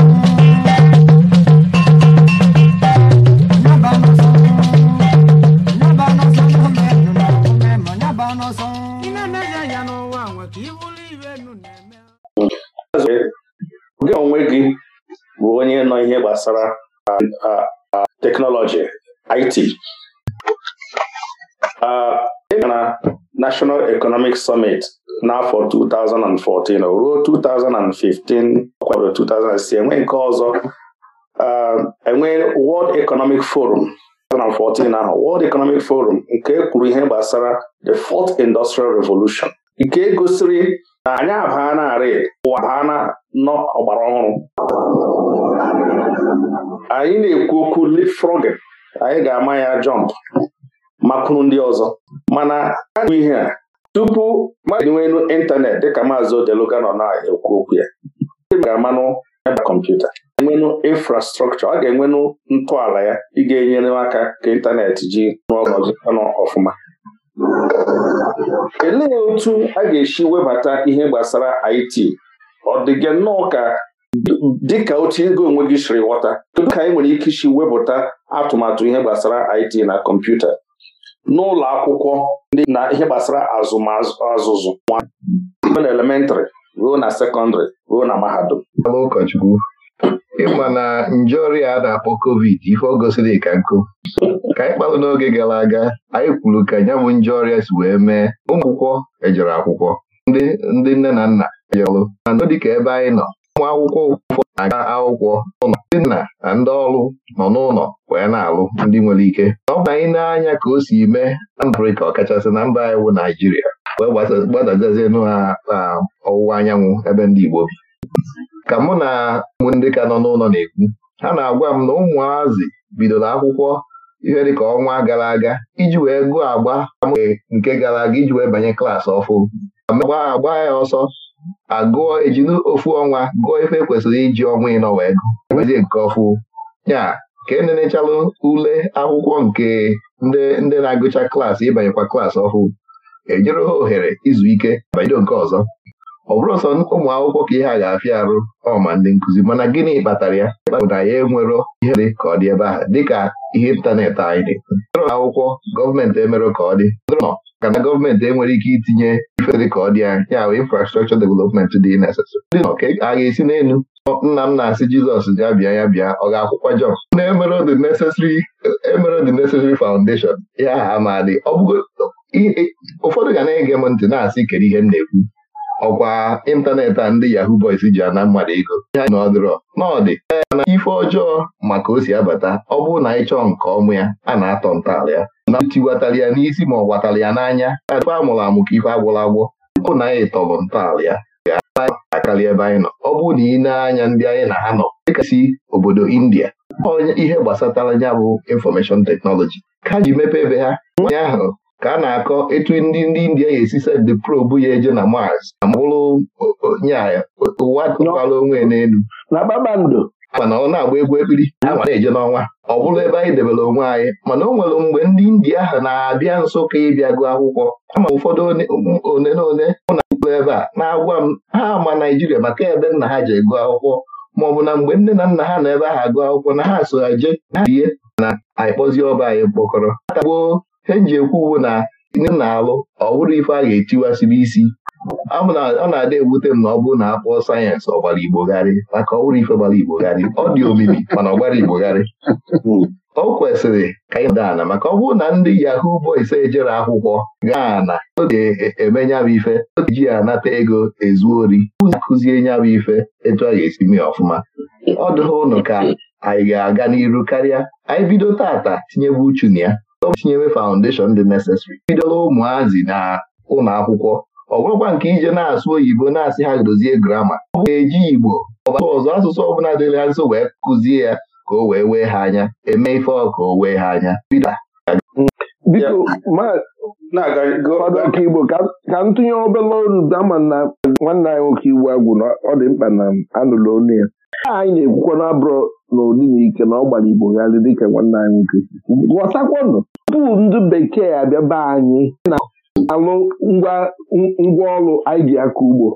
gbasara teknọlọji IT e na National Economic Summit n'afọ 2014 ruo 2015 ọkwa 2006 enwe nke ọzọ uh, enwe World Economic Forum 2014 ahụ World Economic Forum nke kwuru ihe gbasara the Fourth Industrial Revolution nke gosiri na anyị abaa narị ụwa baa na nọ ọgbara ọhụrụ anyị na-ekwu okwu leapfrogging anyị ga-ama ya jọmp makụrụ ndị ọzọ mana a na ihe a tupu mmadụ enwe elu ịntanetị dịka maazị Odeluga nọ na-ekwu okwu ya e ga-amanụ ebe kọmputa enwenụ infrastrọkchọ ọ ga-enwenụ ntọala ya ị ga-enyere aka ka ịntanetị ji n'ọnụ ọfụma elee otu a ga-esi webata ihe gbasara IT ọ dịga nnọọ ka dịka otu ego onwe gị siri ghọta kedu ka anyị nwere ike isi wepụta atụmatụ ihe gbasara IT na kọmputa n'ụlọ akwụkwọ ndị na ihe gbasara azụmazụzụ na elementrị ruo na sekọndịrị ruo na mahadum ụkọchukwu ịma na nje ọrịa a na-akpọ covid ife ọ gosiri ka nkụ ka anyị kpalụ n'oge gara aga anyị kwuru ka nya bụ nje ọrịa si wee mee ụmụ akwụkwọ ejere akwụkwọ ndị nne na nna e jerụ mana dịka ebe anyị nọ ụmụ akwụkwọ ụfọdụ na-aga akwụkwọ ndị nna na ndị ọrụ nọ n'ụlọ wee na-alụ ndị nwere ike ọ bụ anyị na-anya ka o si mee na mba Afrịka ọkachasị na mba anyị wụ Naijiria wee gbadazie na ọwụwa anyanwụ ebe ndị Igbo bi ka mụ na ndị ka nọ n'ụlọ na-ekwu ha na-agwa m na ụmụazị bidoro akwụkwọ ihe dịka ọnwa gara aga iji wee gụọ agba nke gara aga iji wee banye klaasị ọfụ agba ya ọsọ agụọ ejinu ofu ọnwa gụọ ife kwesịrị iji ọnwa ịnọ wee e ezi nke ọfụ ya ka enenechalụ ule akwụkwọ nke ndị na-agụcha klaasị ịbanyekwa klaasị ọhụụ enyere ha ohere izu ike banyere nke ọzọ ọ bụrụ sọ ụmụ akwụkwọ ka ihe a ga-afịa arụ ọma ndị nkụzi mana gịnị kpatara ya bụ na ya enwero ihe dị ka ọ dị ebe ahụ dịka ihe ịntanetị anyị dị akwụkwọ gọọmenti emere ka ọ dị ka na gọọmenti enwere ike itinye ife dị ka ọ dị anya ya bụ infrastrọchọ development dị a ga-esi n'elu nna m na-asị Jizọs ji abịa ya bịa ọ ga-akwụkwa Jọn na-emere the necessary foundation ya aha ma dị ụfọdụ ga na-ege m ntị na-asị kedu ihe m na-ekwu ọkwa ịntanetị a ndị Yahoo Boys ji ana mmadụ ego ihe anyị nọdụrọ n'ọdị na ife ọjọọ maka o si abata ọ bụrụ na anyị chọọ nke ọmụ ya a na-atọ ntọala ya na tiwatara ya n'isi ma ọ gwatara ya n'anya ife a mụrụ amụ ka ife agwụrụ agwọ ụkwụ na anyị tọrọ ntọala ya ga-akarị ebe anyị nọ ọ bụrụ na ị na-anya ndị anyị na ha nọ dịka si obodo India onye ihe gbasatara ya bụ infọmeshọn teknọlọji ka ji mepe ebe ha nwaanyị ahụ ka a na-akọ etu ndị ndị India ga-esi de probu ya eje na Mars na mụrụ nye ụwa tụkwara onwe n'elu na kpakpando mana ọ na-agba egwu ekpiri ama na-eje n'ọnwa ọ bụrụ ebe anyị debere onwe anyị mana o nwere mgbe ndị India ahụ na-abịa nso ka ịbịa gụọ akwụkwọ ama ụfọdụ one na one mụ na ụlọ ebe a na-agwa m ha ama Naijiria maka ebe nna ha ji gụọ akwụkwọ ma ọ bụ na mgbe nne na nna ha nọ ebe ahụ agụ akwụkwọ na ha so ha jee ihe na anyị kpọzie ọba anyị mkpọkọrọ atagbuo he ji ekwu na ndị na-alụ ọ bụrụ ife a ga-etiwasịrị isi ọ na-adị ewute m na ọ bụrụ na akpọọ sayensị ọgbara garị, maka ọ bụrụ ife gbara igbogharị ọ dị omimi mana ọ gbara igbogharị o kwesịrị ka anyị daa ana maka ọ bụrụ na ndị yahoo boys ejere akwụkwọ gaa na oge emenya bụ ife ji ya anata ego ezu ori ụzi nya bụ ife etu a ga-esi mee ọfụma ọ dụghị ụnụ ka anyị ga-aga n'iru karịa anyị bido tata tinyebu uchu na ya ọ chinyewe foundation dị necessary bidoro ụmụazị na ụlọ akwụkwọ ọ bụrụkwa nke ije na-asụ oyibo na-asị ha dozie grama ọ bụ eji igbo ọbata ọzọ asụsụ ọbụla dịrị ha nso wee kụzie ya ka o wee wee ha anya eme ife ọka o wee ha anya biko fọdụ igbo ka m tụnye olu dama na nwanne anyị nwoke igbo agwụ na ọ dị mkpa na m anụla ya anyị na-ekwukwa na abụrụ n'ụdị na ike na ọ gbara igbo gharị dịka nwanne anyị ghọtakwanụ tupu ndị bekee abịa be anyị na-alụ ngwaọrụ anyị ji aka ugbo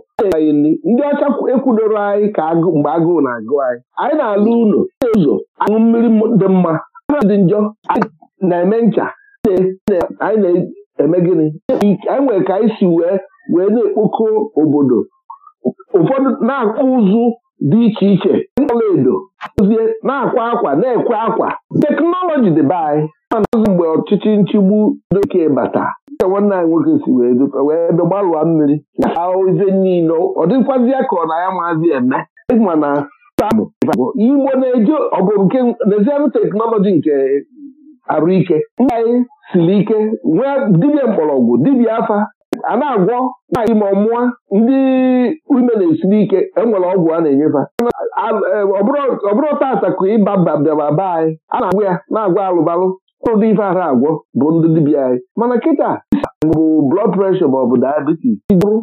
ndị ọcha ekwudoro anyị ka mgbe agụụ na-agụ anyị anyị na-alụ ụlọ ụzọ aṅụ mmiri dị mma dị njọ na-eme ncha anyị na-eme gịnị anyị nwere ka anyị si wee wee na-ekpokọ obodo ụfọdụ na-akpụ ụzụ dị iche iche ọlaedo ozie na-akwa akwa na-ekwe akwa teknọlọji dịbe anyị manazụ mgbe ọchịchị nchigbu doke bata ka nwanne anyị nwoke si wee ebe gbalụa mmiri ozie niile ọ dịkwazi ka ọ na ya maazi eme mana igbo na-eje ọgụ nke nezianụ teknọlọji nke arụike mba anyị siri ike nwee dibịa mgbọrọgwụ dibịa afa a na-agwọ nwaanyị ma mụa ndị ume na-esiri ike enwere ọgwụ a na-enyefa e, ọ bụrụ tata ka ịba bịara be anyị a na-agwụ ya na-agwọ alụbalụ ọrụ dị ife ara agwọ bụ ndị dibịa anyị mana kịta bụ blọd preshọ ma ọ bụ diabetes ịdụrụ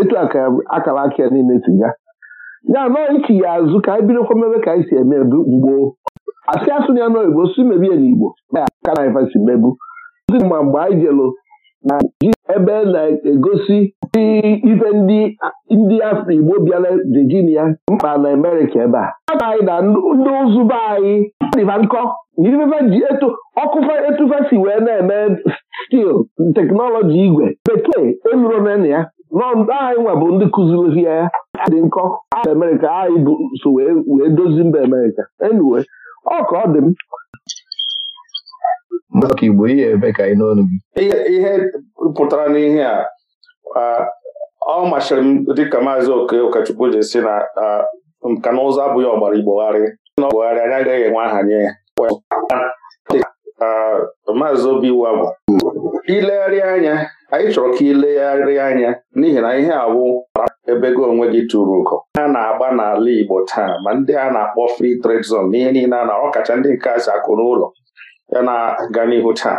etu akara aka niile si ga ya anọ ichi ya azụ ka anyị bidokwa mebe ka anyị si eme mgbo asị asụ ya n'oyibo si mebie n'igbo ya aka na ife si mebu ma mgbe anyị jelu na ebe na-egosi ife ndị afọ Igbo bịara Virginia mkpa na amerika ebe a anyị na ndị ụzụ be anyị dịba nkọ ji ọkụfa etufe wee na-eme stil teknọlọji igwe bekee elurona ya nọndụ anyị nwa bụ ndị kụziri ya dị nkọ Amerika anyị so wee dozi mba Amerika, enuwe, ọ ka ọ dị m maka Igbo ihe ebe ka n'ọnụ gị ihe pụtara n'ihe a ọ masịrị m dịka maazị oke ụkọchukwu ji si na nka na ụzọ abụghị ọgbara igbogharị na ọgbogharị anyị agaghị enwe aha nye ya maazị obi iwu abụ ilegharị anya anyị chọrọ ka ilegharị anya n'ihi na ihe awụ ebe gị onwe gị tụrụ ugo a na-agba n'ala Igbo taa ma ndị a na-akpọ free trade zone n'ihe niile a na ọkacha ndị nke a si akụ n'ụlọ ya na-aga n'ihu taa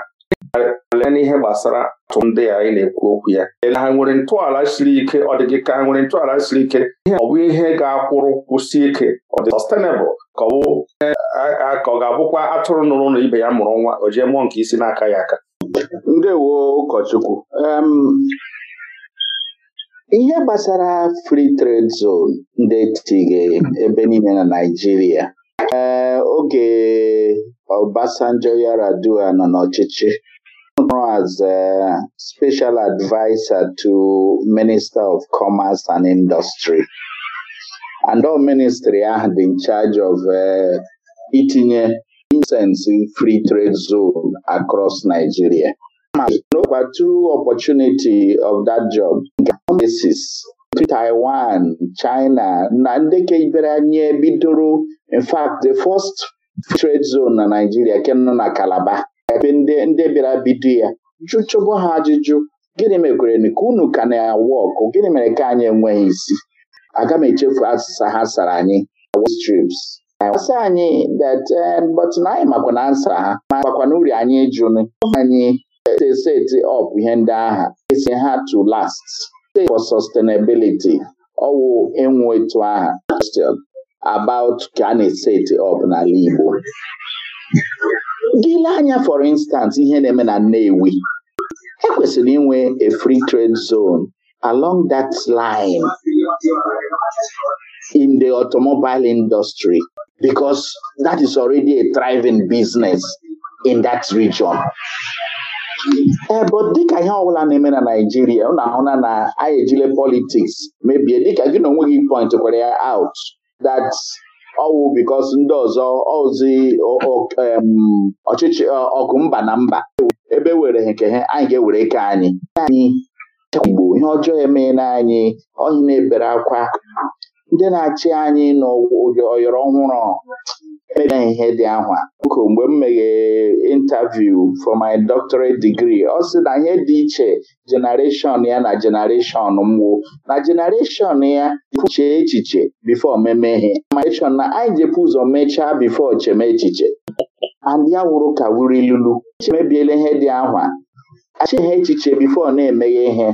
lee n'ihe gbasara atụ ndị a na-ekwu okwu ya ha nwere ntọala siri ike ọ dị gị ka ha nwere ntọala siri ike ihe ọ bụ ihe ga-akwụrụ kwụsi ike ọ dị sustainable ka ọ bụ ka ọ ga-abụkwa atụrụ nụrụ na ibe ya mụrụ nwa o jee mụọ nke isi n'aka ya aka ndewo ụkọchukwu ihe gbasara free trade zone ndị etighị ebe niile na Naịjirịa oge Obasanjo Yaradua nọ n'ọchịchị as a special advisor to Minister of Commerce and Industry and all ministry ahụ dị in charge of eh, itinye incense free trade zone across Nigeria. But through opportunity of that job basis Taiwan, China na ndị kebere anya bidoro in fact the first trade zone na Nigeria, ke nọ na Calabar ebe ndị bịara bido ya jụchụbụ ha ajụjụ gịnị mekwere ka unu ka na-awụ ọkụ gịnị mere ka anyị enweghị isi aga m echefu asịsa ha sara anyị strips asị anyị eh, but na anyị makwa na nsa ha Ma makwa na uri anyị jụnụ anyị eh, seti ọp ihe ndị agha isi ha to last State for Sustainability ọwụ enwe etu question about ka a of up n'ala Igbo for instance ihe na-eme na Nnewi ekwesịrị inwe a free trade zone along that line in the automobile industry because that is already a thriving business in that region ebe eh, dịka ihe ọbụla na-eme na Naịjirịa ụ na-ahụna na anyị ejile politiks mebie dịka gị na onwe gị point kwere ya out that ọwụ bikos ndị ọzọ ozi ọchịchị ọgụ mba na mba ebe were nke ha anyị ga-ewere ike anyị anyị gbo ihe ọjọọ emeela anyị ohi na-ebere akwa ndị na-achị anyị n'ọyọrọ ọhụrụ emere ihe dị ahụ oku mgbe m meghere interview for my doctorate degree ọ sị na ihe dị iche generation ya na generation mwụ na generation ya chee echiche bifo memeghe generation na anyị jepụ ụzọ mechaa bifo cheme echiche and ya wụrụ ka wuru ilulu emebiela ihe dị ahụ achihe echiche bifo na-emeghe ihe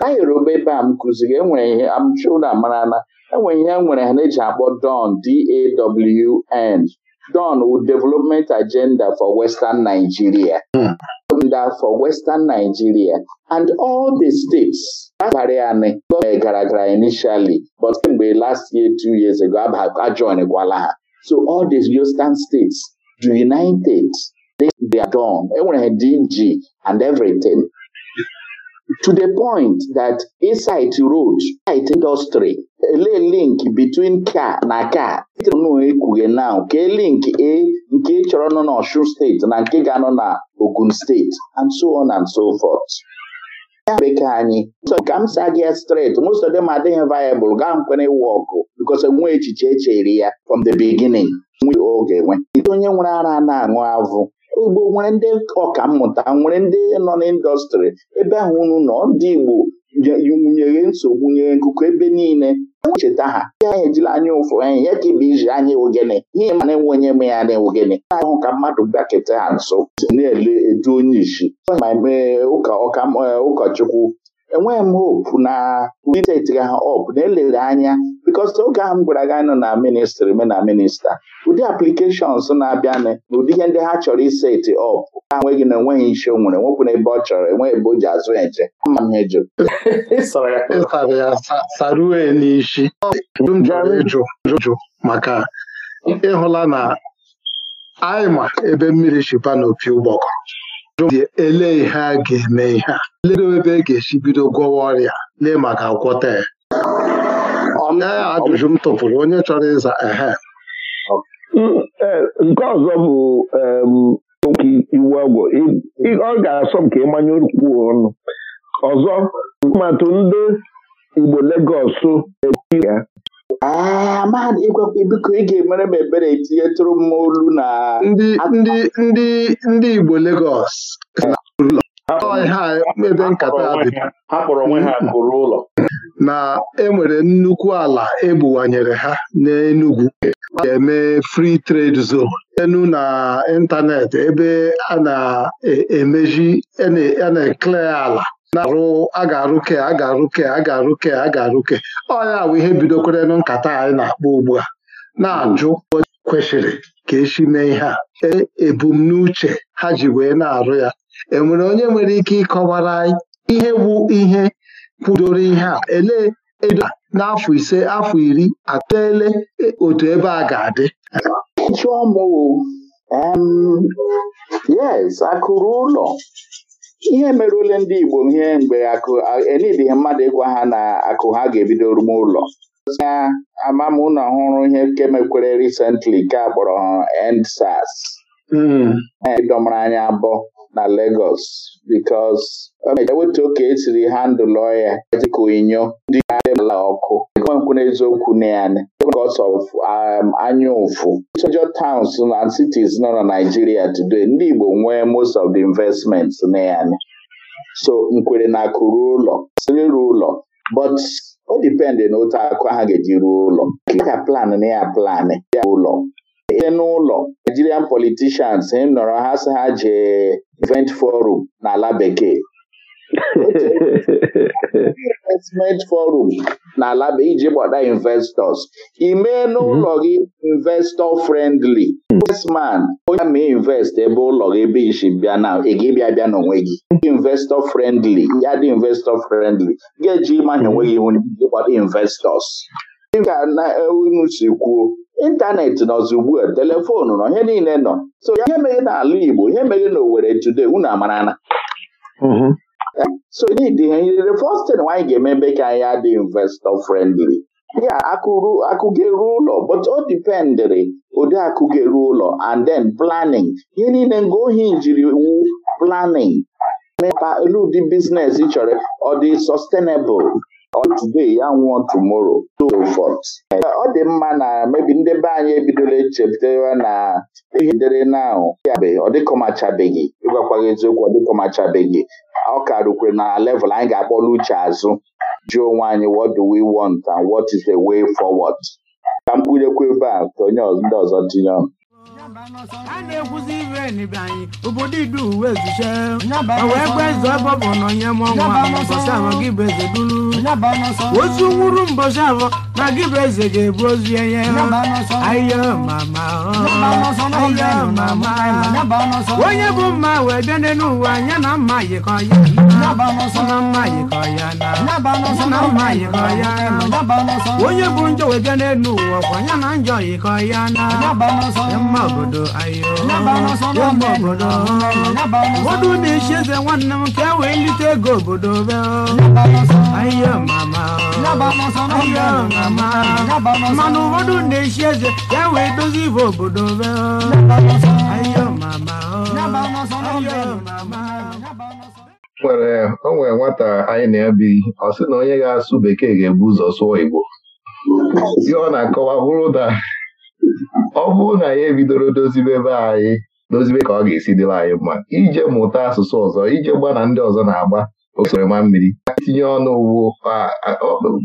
na Yoruba ebe a m kụziri enwere ihe amchụda marala enwere ya nwere ha na-eji akpọ DAWN D-A-W-N DAWN wu Development Agenda for Western Nigeria hmm. for Western Nigeria and all the states abalị anị e gara gara initially but kemgbe last year two years ago ajoinkwala ha so all the Western states united they are done enwere ha DG and everything to the point that inside road site industry ele link between car na car. tnụ ekwughe now kee link a nke chọrọ nọ na Osun steeti na nke ga-anọ na Ogun steeti and so on and so forth ya bekee anyị ka m sa gị straight most of them adịghị viable gaa nkwere ịwụ ọgụ because nwe echiche echere ya from the beginning nwe oge nwe onye nwere ara na-aṅụ avụ ugbo nwere ndị ọka mmụta nwere ndị nọ n'ịndọstrị ebe ahụ unu nọ ndị Igbo nyere nsogbu nyere nkụkọ ebe niile echeta ha anyị ejila anya ụfụ anyị ya ka ibe iji anya ogene ihe na enwe onye me ya na ogene ahụ ka mmadụ bịakịta ha nso na-ele edu onye isi ụkọchukwu enweghị m hope na steeti ha op na elere anya bikos oge ahụ m gwara gị anọ na ministri me na minista ụdị aplikeshọns na-abịanụ na ụdị ihe ndị ha chọrọ iseti ọp ha nweghị na enweghị isi o nwere nwepụ n'ebe ọ chọrọ enweghị ebe o ji azụ eje ama m eju sarue n'isi maka ịhụla na anyị ma ebe mmiri shipa na opi ụgbọkọ elee ihe a ga-eme ihe a ledo ebe e ga-esi bido gwọwa ọrịa lee maka gwọta ya ajụjụ m tụpụrụ onye chọrọ ịza ehe mm, e, nke ọzọ bụ okwu iwu agwọ ọ ga-asọ m ka ịmanye okwu ọnụ ọzọ atụmatụ ndị Igbo Legọs ya e, amahadụ ah, ịgwakwa biko ị ga-emere m ebere tụrụ m olu na ndị ndị ndị ndị Igbo Legọs ebe nkata ụlọ. na enwere nnukwu ala ebuwanyere ha n'Enugu ga-eme free trade zone enu na ịntanetị ebe a na-emeji a na-ekle ala na-arụ a ga-arụke a ga-arụke a ga-arụke a ga-arụke ọ ya bụ ihe bidokwarenụ nkata anyị na-akpọ ugbu a na-ajụ kwesịrị ka esi mee ihe a e, ebumnuche ha ji wee na-arụ ya enwere onye nwere ike ịkọwara anyị ihe bụ ihe kwudoro ihe a elee edo n'afọ ise afọ iri atụle e, otu ebe a ga-adị yes akụrụ ụlọ ihe merụle ndị Igbo ihe mgbe akụ enidịghị mmadụ ịgwa ha na akụ ha ga-ebido rume ụlọ ya ama m ụlọ ọhụrụ ihe nke mekwere recently nke a kpọrọ endsars hmm. e, ịdọmara anyị abụọ na Lagos because eweta oke esiri handụl ọya dịka onyinyo ala ọkụ ekwenkwụ n'eziokwu na ya because of um, anyaụfụ major towns na cities nọ na Nigeria today ndị Igbo nwee most of the investments na ya so nkwere na akụ ruo ụlọ siri ruo ụlọ but o dipendị na otu akụ ha ga-eji ruo ụlọ ka plan na ya plan ya ụlọ ihe n'ụlọ Nigerian politicians nọrọ ha si ha jee event forum n'ala bekee investment forum n'ala bụ iji gbada investors imee n'ụlọ mhm. gị investor friendly investman onye ma invest ebe ụlọ gị bi isi bịa na bịa n'onwe gị investor friendly ya dị investor friendly ga-eji ịmanya onwe gị iji gbada investors dịka na e, unu si kwuo ịntanetị nọzi ugbu a telefon nọ ihe niile nọ so ihe mere n'ala Igbo ihe meghe n'Owere today unu amarana mhm. so need the first thing anyị ga-eme ebe ka anyị adị investor friendly ya akụrụ akụ ga-eru ụlọ but o dipendịrị ụdị akụ ga-eru ụlọ and then planning ihe niile nga ohi jiri wu planning mepa elu ụdị biznes chọrọ ọ dị sustainable ọ today ya nwụọ tomorrow so forth ọ dị mma na mebi ndị be anyị ebidola echepụtara na ihe dere naụ yabe ọ dịkọmachabeghị ịgwakwaghị eziokwu ọ dịkọmachabeghị ọ ka rukwere na level anyị ga-akpọla uche azụ jụọ onwe anyị what do we want and what is the way forward ka m kwurekwu ebe a ka onye ndị ọzọ tinye ọnụ a na-ekwuzi iwe n'ibe obodo idu uwe ezuche e wee gwe bụ na onye mụọnwa mbọsị ahụ gị bụ eze duru otu nwuru mbọsị na ga-ebu ozu enye onye bụ mma wee bịa n'elu na mma ya onye bụ njọ wee bịa n'elu ụwa ya njọ yikọ ya na obodo ayo obodo na-echi eze nwanne m ka e wee ego obodo be ayo mama ayo na-echi eze ka e ibe obodo be o nwata anyị na-ebi ọ sị na onye ga-asụ bekee ga-ebu ụzọ sụọ Igbo ihe na-akọwa ọ bụrụ na ya ebidoro dozibe be anyị dozibe ka ọ ga-esi dịrị anyị mma ije mụta asụsụ ọzọ ije gba na ndị ọzọ na-agba osoroma mmiri tinye ọnụ ugbo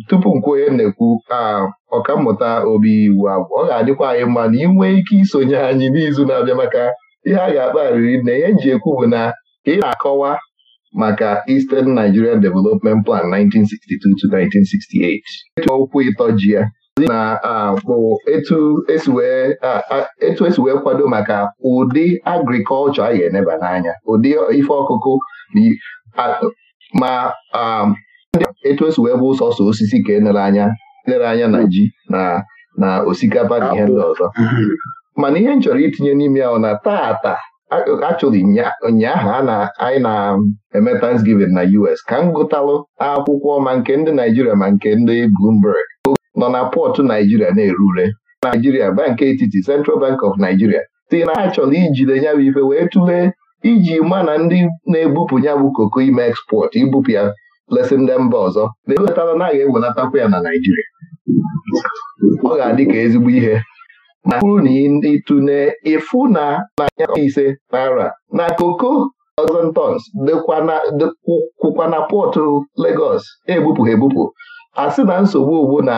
tupu m onye na-ekwu ọkammụta obi iwu abụ ọ ga-adịkwa anyị mma na ị ike isonye anyị n'izu na-abịa maka ihe a ga-akpagharịrị na ihe nji ekwu bụ na ị na-akọwa maka Eastern Nigerian Development Plan 1962 to 1968 okwu ịtọ ji ya na bụ etu esi wee kwado maka ụdị agrikọlchọ a ga-eneba n'anya ụdị ife ọkụkụ ma etu esi wee bụ sọsọ osisi ka enere anya e lere anya na ji na na osikapa na ihe ndị ọzọ mana ihe m chọrọ itinye n'ime ya na tata achọrọ ụnyaahụ anyị na-eme Thanksgiving na US ka m gụtalụ akwụkwọ ma nke ndị Naijiria ma nke ndị Bloomberg nọ na pọtụ Naijiria na erure ure Naijiria bank etiti Central Bank of Nigeria si na ha chọrọ ijide ya bụ ife wee tụlee iji ma na ndị na-ebupụ ya bụ koko ime ekspọt ibupụ ya lesị ndị mba ọzọ na-ewelatara na a ga-ewelatakwa ya na Naijiria ọ ga-adị ka ezigbo ihe ma bụrụ na ndị tụne ịfụ na nanya ise naira na koko ọzọ tons dịkwụkwa na pọtụ Legọs ha ebupụ a sị na nsogbu ugbu na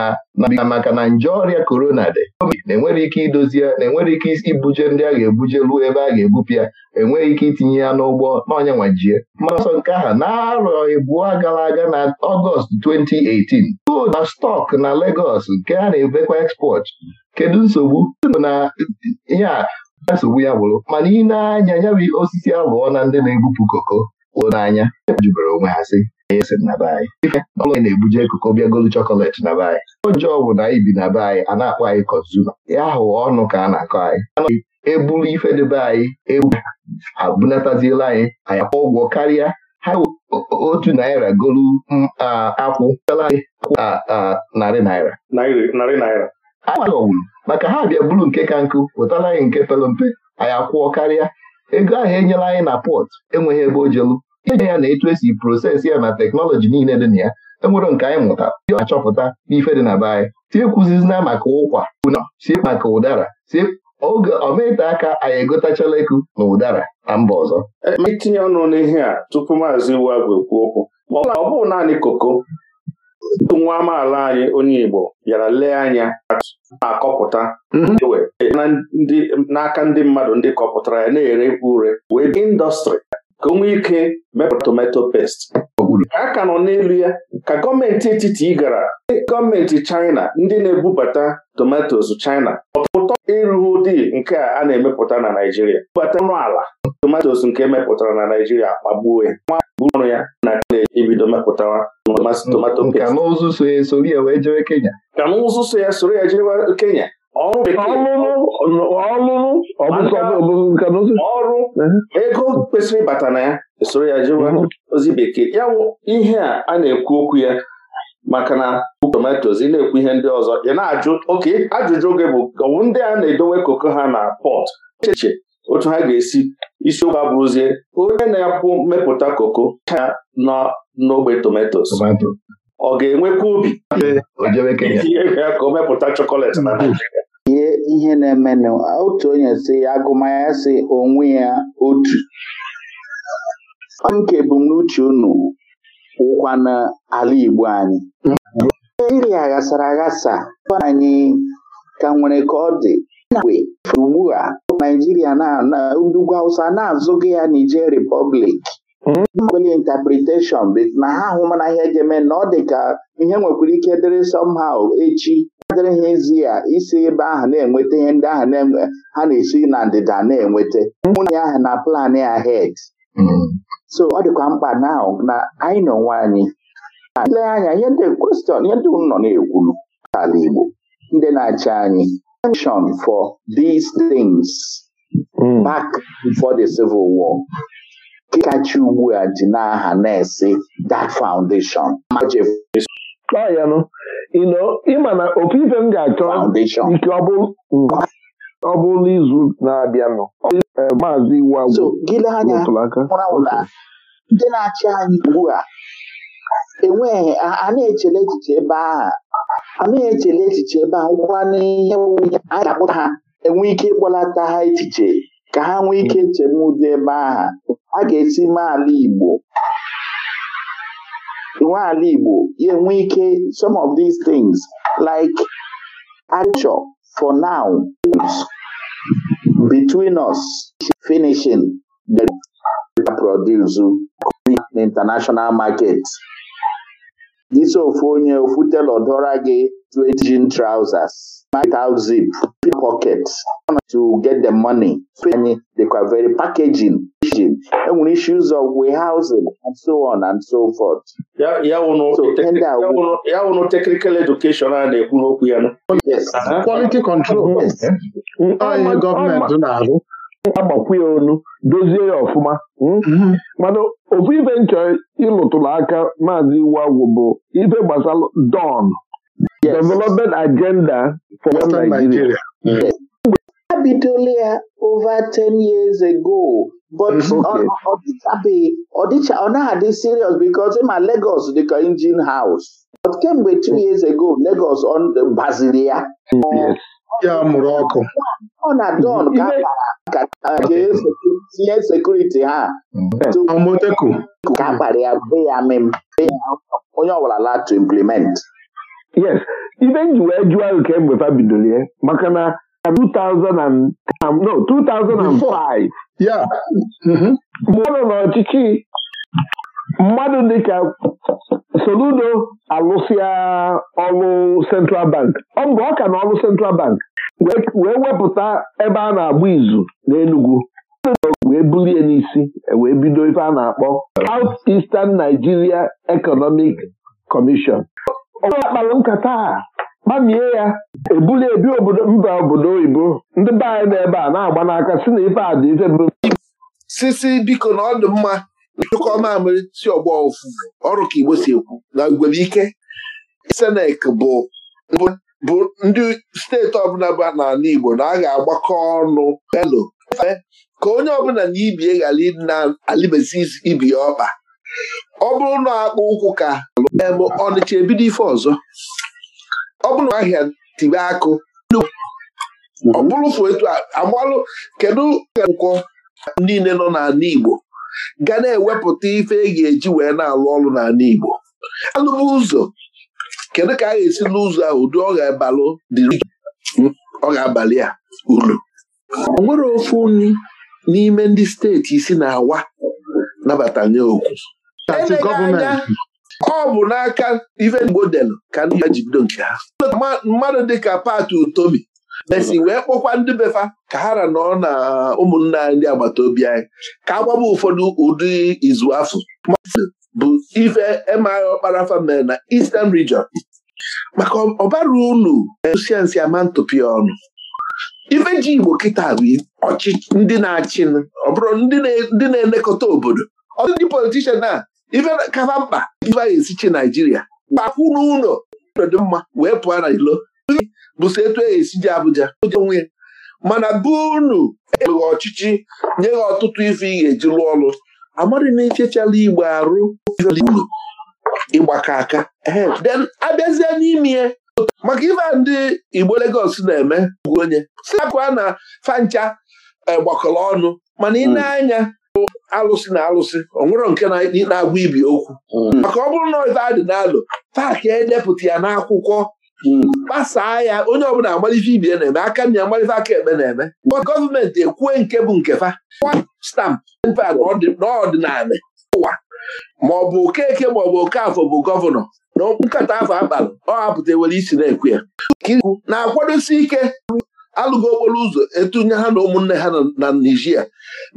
na maka na nje ọrịa korona dị na-enwere ike idozi ya na-enwere ike ibuje ndị a ga-ebuje ruo ebe a ga-ebupụ ya enweghị ike itinye ya n'ụgbọ n'ọnya nwajie mana ọsọ nke aha na-arọ ịbụọ gara aga na ọgọst 2018 gold na stọk na Legọs nke a na-ebekwa ekspọt kedu nsogbu na ihe a nsogbu ya bụrụ mana ị na-anya ya osisi alụọ na ndị na-ebupụ koko n'anya jubere onwe ha sị ọbụla na-ebuje ekuko bịa golu chọkọletị na be anyị onje bụ na anyị bi na be anyị a na-akpọ anyị kọzuma ya ahụ ọnụ ka a na-akọ anyị anaghị eburu ife debe anyị ebu abunataziela anyị anyị akwụ ụgwọ karịa ha otu naira golu akwụ narị naira ọwụrụ maka ha bịa buru nke ka nkụ wetara anyị nke pere mpe anyị akwụọ karịa ego ahụ enyela anyị na pọt enweghị ebe o jelu ije ya na etu esi prosesi ya na teknọlọji niile dị na ya enwere nke anyị mụta dị achọpụta n'ife dị na be anyị tiekwuzizina maka ụkwa una sie maka ụdara si oge ọmaete aka anyị egotachala eku na ụdara na mba ọzọ na-etinye e, ọnụ n'ihe a tupu maazị iwu abụ ekwu okwu ọ bụrụ naanị koko nwa amaala anyị onye Igbo bịara lee anya na-akọpụta mhm. n'aka ndị mmadụ ndị kọpụtara ya na ere ure wee indọstrị ka o nwee ike mepụta tomato paste a ka nọ n'elu ya ka gọọmenti etiti gara gọọmenti China ndị na-ebubata tomatos China ọpụtọ ịrụ ụdị nke a a na-emepụta na Naijiria bubata ọnụ ala tomatos nke emepụtara na Naijiria kpagbuo ya bụrụ ya na ebido mepụtawa tomato pest ka n'ụzụ so ya soro ya jewe Kenya ọlụlụ ọrụ eh? ego kwesịrị ịbata na ya esoro ya jewa mhm. ozi bekee ya ihe a a na-ekwu okwu ya maka na tomatoes ị na-ekwu ihe ndị ọzọ ị na-ajụ oke ajụjụ oge bụ ọwụ ndị a na-edowe koko ha na pọt echiche otu ha ga-esi isiokwu abụrụzie onye na-akwụ mmepụta koko ha nọ n'ogbe tomatoes ọ ga-enwekwa obi eh, ka o mepụta chọkọletị na mhm. ihe ihe na-emenụ otu onye si ya si onwe ya otu nke ebumnuche unu ụkwa n'ala Igbo anyị Naijiria ghasara aghasa anyị ka nwere ka ọ dị ugbu a Naijiria ugwu Hausa na-azụghị ya Niger Repọblik. nwere interpretation na ha mana ihe ga-eme na ọ dị ka ihe nwekwara ike dịrị somehow echi adịrị ha ezi ya isi ebe ahụ na-enweta ihe ndị ahụ ha na-esi na ndịda na-enweta nwunye ahụ na plan ahead hmm. so ọ dịkwa mkpa na na anyị nọ nwa anyị ile anya ihe ndị kwestion ihe ndị nọ na-ekwulu ala Igbo ndị na-achị anyị attention for these things hmm. back before the civil war ịkachi ugbu a ji n'aha na-esi that foundation ịma na opi m ga-achọ ike ọ bụrụ n'izu na-abịanụ e, maazị iwu ndị na-achị anyị ugbu a enweghị a na-echele echiche ebe aha a na-echele echiche ebe a ụkwa n'ihe anyị ga-akpụta ha enwe ike ịkpọlata ha echiche ka ha nwee ike chebe dị ebe aha a ga-esi mee ala Igbo nwe Igbo ya enwe ike some of these things like culture for now between us finishing the produce International market gị ofu onye ofu telọ gị straight jean trousers, out zip, pockets to get the money. Anyị dịkwa very packaging enwere issues of warehousing and so on and so forth. ya wụnụ technical education a na-ekwu n'okwu ya uh-huh. quality control onye gọọmenti na-arụ agbakwụ ya onu dozie ya ọfụma hmm? mm-hmm. mana ofu ibe nchọ ịlụtụrụ aka maazị Iwu Agwụ bụ gbasara don Yes. Development agenda for Western Nigeria. Nigeria. Yes. a bidola ya over 10 years ago but ọ na-adị serious because ma Lagos dịka engine house but kemgbe 2 years ago Lagos gbaziri ya ya mụrụ ọkụ ọ na don ka a kpara tinye sekuriti ha ka a ya be ya mem onye ọbụla la to implement yes ibe nji wee jụọ ahụ kemgbe bidoro ya maka na 2000 um, um, no 2005 mgbe mm-hmm. n'ọchịchị mmadụ dịka Soludo alụsịa ọrụ Central Bank ọ bụ ọka na ọrụ Central Bank wee wepụta ebe a na-agba izu n'Enugu wee bulie n'isi e wee bido ife a na-akpọ South Eastern Nigeria Economic Commission ọgwụ akpalụ nkata a ya ebuli ebi obodo mba obodo oyibo ndị be anyị n'ebe a na-agba n'aka si na ife a dị ife bụ sisi biko na ọ dị mma ịchụkọ mamịrị si ọgbọ ofu ọrụ ka Igbo si ekwu na ngwere ike senek bụ bụ ndị steeti ọbụla bụ n'ala Igbo na a ga-agbakọ ọnụ elo ka onye ọbụla na ibie ghara na-alịbezi ibi ya ọkpa ọ bụrụ na akpụ ụkwụ ka Ọnịcha ebido ife ọzọ ọ bụrụ na ahịa tibe akụ ọ bụrụ fụ etu amalụ kedu nkwọ niile nọ n'ala Igbo ga na-ewepụta ife e ga-eji wee na-alụ ọrụ n'ala Igbo alụbụ ụzọ kedu ka a ga-esi n'ụzọ ahụ dị ọ ga-abalụ dị ọ ga-abalị a uru o nwere ofu nri n'ime ndị steeti isi na-awa nabata nye okwu pati gọọmenti ọ bụ n'aka ife Igbo delụ ka ndị ya ji bido nke ha mmadụ dịka pati Utomi mesi wee kpọkwa ndị befa ka ha ra nọ na ụmụnna ndị agbata obi anyị ka a gbaba ụfọdụ ụdị izu afọ bụ ife emaghị ọkpara famil na Eastern Region maka ọbara unu siensi ama ntụpịa ọnụ ife ji Igbo kịta bụ ọchịchị ndị na-achị ọ bụrụ ndị na-elekọta obodo ọtụtụ ndị politishan a ife kaba mkpa ife anyị esichi naijiria kpakwu n'ụlọ dị mma wee pụọ na ilo bụso etu e esiji abụja onwe mana be unu eweghị ọchịchị nye ha ọtụtụ ife ị ga-eji lụọ ọrụ amadị na ichechala igbo arụ ịgbakọ aka then abịazie n'ime ya maka ife ndị igbo Lagos na-eme onye si akụa na fancha eh, gbakọrọ ọnụ mana ị hmm. na-anya alụsị na alụsị ọ nwụrọ nke na-agwa ibi okwu mm. maka ọ bụrụ na ife a dị n'alụ paakị edepụta ya n'akwụkwọ gbasaa mm. ya onye ọbụla agbalife ibie na-eme aka nna agbalife aka ekpe na-eme gọọmenti ekwue nke bụ nke fa stampụ n'ọdịnala ụwa ma ọ bụ okeke ma ọ bụ okafọ bụ gọvanọ na nkata afọ akpalụ ọ hapụta ewere isi na-ekwu ya na-akwadosi ike alụghị okporo ụzọ etunye ha na ụmụnne ha na Nigeria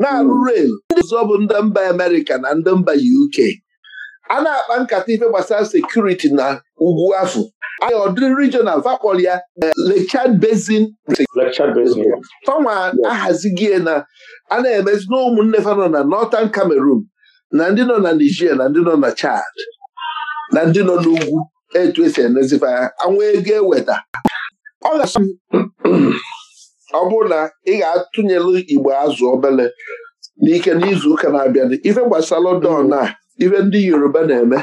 na-arụ hmm. rel ndị ọzọ bụ ndị mba Amerịka na ndị mba UK a na-akpa nkata ife gbasara sekuriti na ugwu afọ anyị ọdịrị regional vakpol ya eh, Lake Chad Basin tọnwa ahazigie na a na-emezi na ụmụnne fa nọ na Northern Cameroon na ndị nọ na Nigeria na ndị nọ na Chad na ndị nọ n'ugwu etu esi emezifa anwụ ego eweta ọ bụrụ na ị ga-atụnyelu igbo azụ obele n'ike n'izu ụka na-abịa ife gbasara London a ife ndị Yoruba na-eme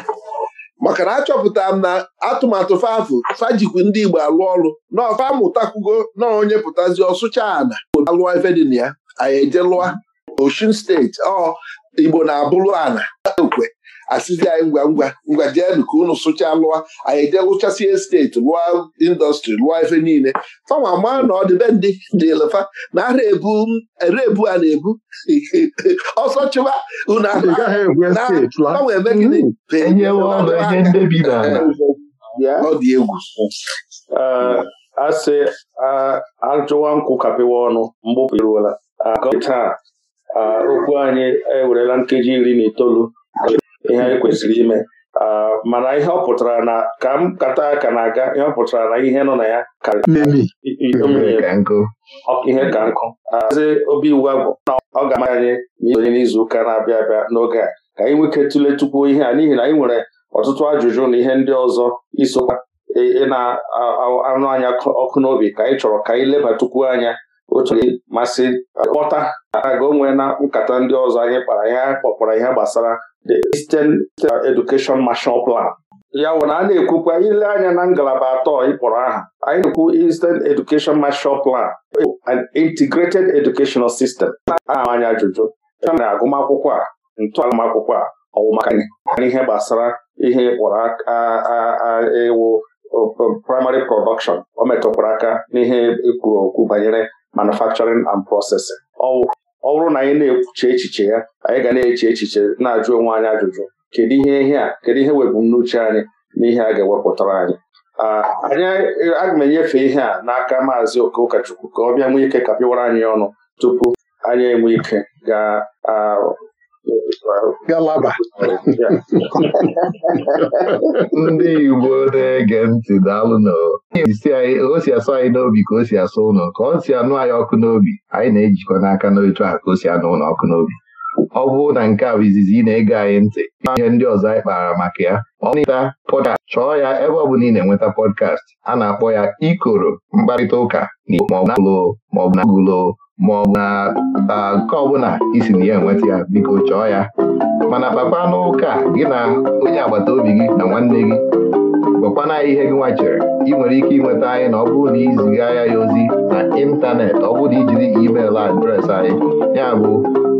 maka na achọpụta m na atụmatụ fafụ fajikwu ndị Igbo alụ ọrụ na ọfa naonye na onye pụtazi ọsụcha ana alụọ ife dị na ya anyị eje lụa Osun steeti ọ Igbo na-abụrụ ana ekwe asịzi anyị ngwa ngwa ngwa jeenụ ka unu sụchaa lụọ anyị jee lụchasie steeti lụọ indọstrị lụọ efe niile fama maa na ọ ndị dị dịlefa na ara ebu a na-ebu ọsọ chụba unu agbanwe eme gịnị hmm. ọ dị egwu uh, asị ajụwa nkwụ kapịwa ọnụ mgbupụ iruola taa okwu anyị ewerela nkeji iri na itoolu ihe anyị kwesịrị ime mana ihe ọ pụtara na ka m kata aka na aga ihe ọ pụtara na ihe nọ na ya ihe ka nkụ eze obi iwu agwụ na ọ ga-ama anyị onye n'izu ụka na-abịa abịa n'oge a ka anyị nweke tụle tupu ihe a n'ihi na anyị nwere ọtụtụ ajụjụ na ihe ndị ọzọ isokwa ị e, e na-anụ anya ọkụ n'obi ka anyị chọrọ ka anyị lebatukwu anya E, o chọrọ masị kpọta aga onwe na nkata ndị ọzọ anyị kpara ya kpọkpọrọ ihe gbasara the Eastern Education Marshall Plan ya wụ na a na-ekwukwa ile anya na ngalaba atọ ịkpọrọ aha anyị na-ekwu Eastern Education Marshall Plan an integrated educational system na-ama anya ajụjụ na agụmakwụkwọ a ntọala akwụkwọ a ọ ihe gbasara ihe ịkpọrọ ịwụ primary production o metụkwara aka n'ihe ekwuru okwu banyere manufacturing and processing ọ bụrụ na anyị na-ekwuche echiche ya anyị ga na-eche echiche na-ajụ onwe anyị ajụjụ kedu ihe ihe a kedu ihe n'uche anyị na ihe a ga-ewepụtara anyị anyị aga m enyefe ihe a n'aka maazị oke ụkọchukwu ka ọ bịa nwee ike kapịwara anyị ọnụ tupu anyị enwe ike gaa galaba ndị Igbo na-ege ntị daalụ o si asọ anyị n'obi ka o si asọ ụlọ ka o si anụ anyị ọkụ n'obi anyị na-ejikọ n'aka n'otu a ka o si anụ ụlọ ọkụ n'obi ọ bụrụ na nke a bụ izizi ị na-ege anyị ntị ihe ndị ọzọ anyị kpara maka ya ọ na pọdkast chọọ ya ebe ọ bụla ị na-enweta pọdkast a na-akpọ ya ikoro mkparịta ụka na maọbụ na gụlo maọbụ na gụlo ma ọ bụ na nke ọbụla isi na ya enweta ya biko chọọ ya mana kpakwa n'ụka gị na onye agbata obi gị na nwanne gị gwakwana ihe gị nwachere ị nwere ike ịnweta anyị na ọ bụrụ na iziga ya ya ozi na ịntanetị ọ bụrụ na ijiri email adreesị anyị ya bụ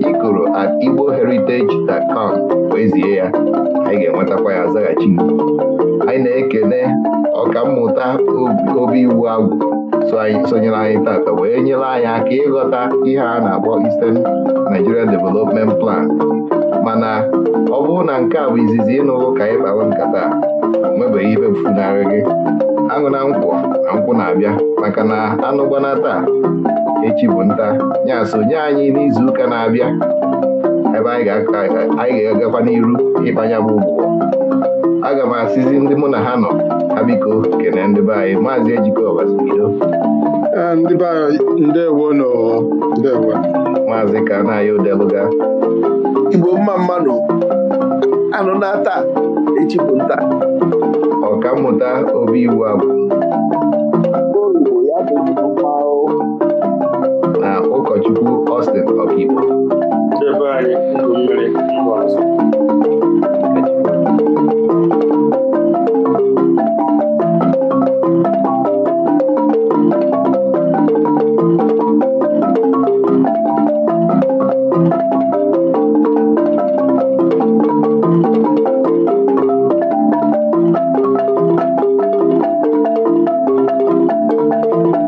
ikoro at igboheritage.com wezie ya anyị ga-enwetakwa ya zaghachi anyị na ọka ọkammụta obi iwu agwụ sonyere anyị tata wee nyere anyị aka ịghọta ihe a na-akpọ Eastern Nigerian Development Plan mana ọ bụrụ na nke a bụ izizi ịnụrụ ka anyị kpawa nkata nwebeghị ibe mfunarị gị aṅụ na nkwọ na nkwụ na-abịa maka na anụgbana taa echi bụ nta ya sonye anyị n'izuụka na-abịa ebe anyị ga-agakwa n'iru ịkpanya bụ ụgbọ aga m asịzi ndị mụ na ha nọ ha biko kene ndị be anyị maazị ejikọbasi bido maazị ka na odeluga igbo mma mmanụ anụ na-ata echipụ nta ọka mmụta obi iwu abụ na ụkọchukwu Austin Ọkigbo Thank you.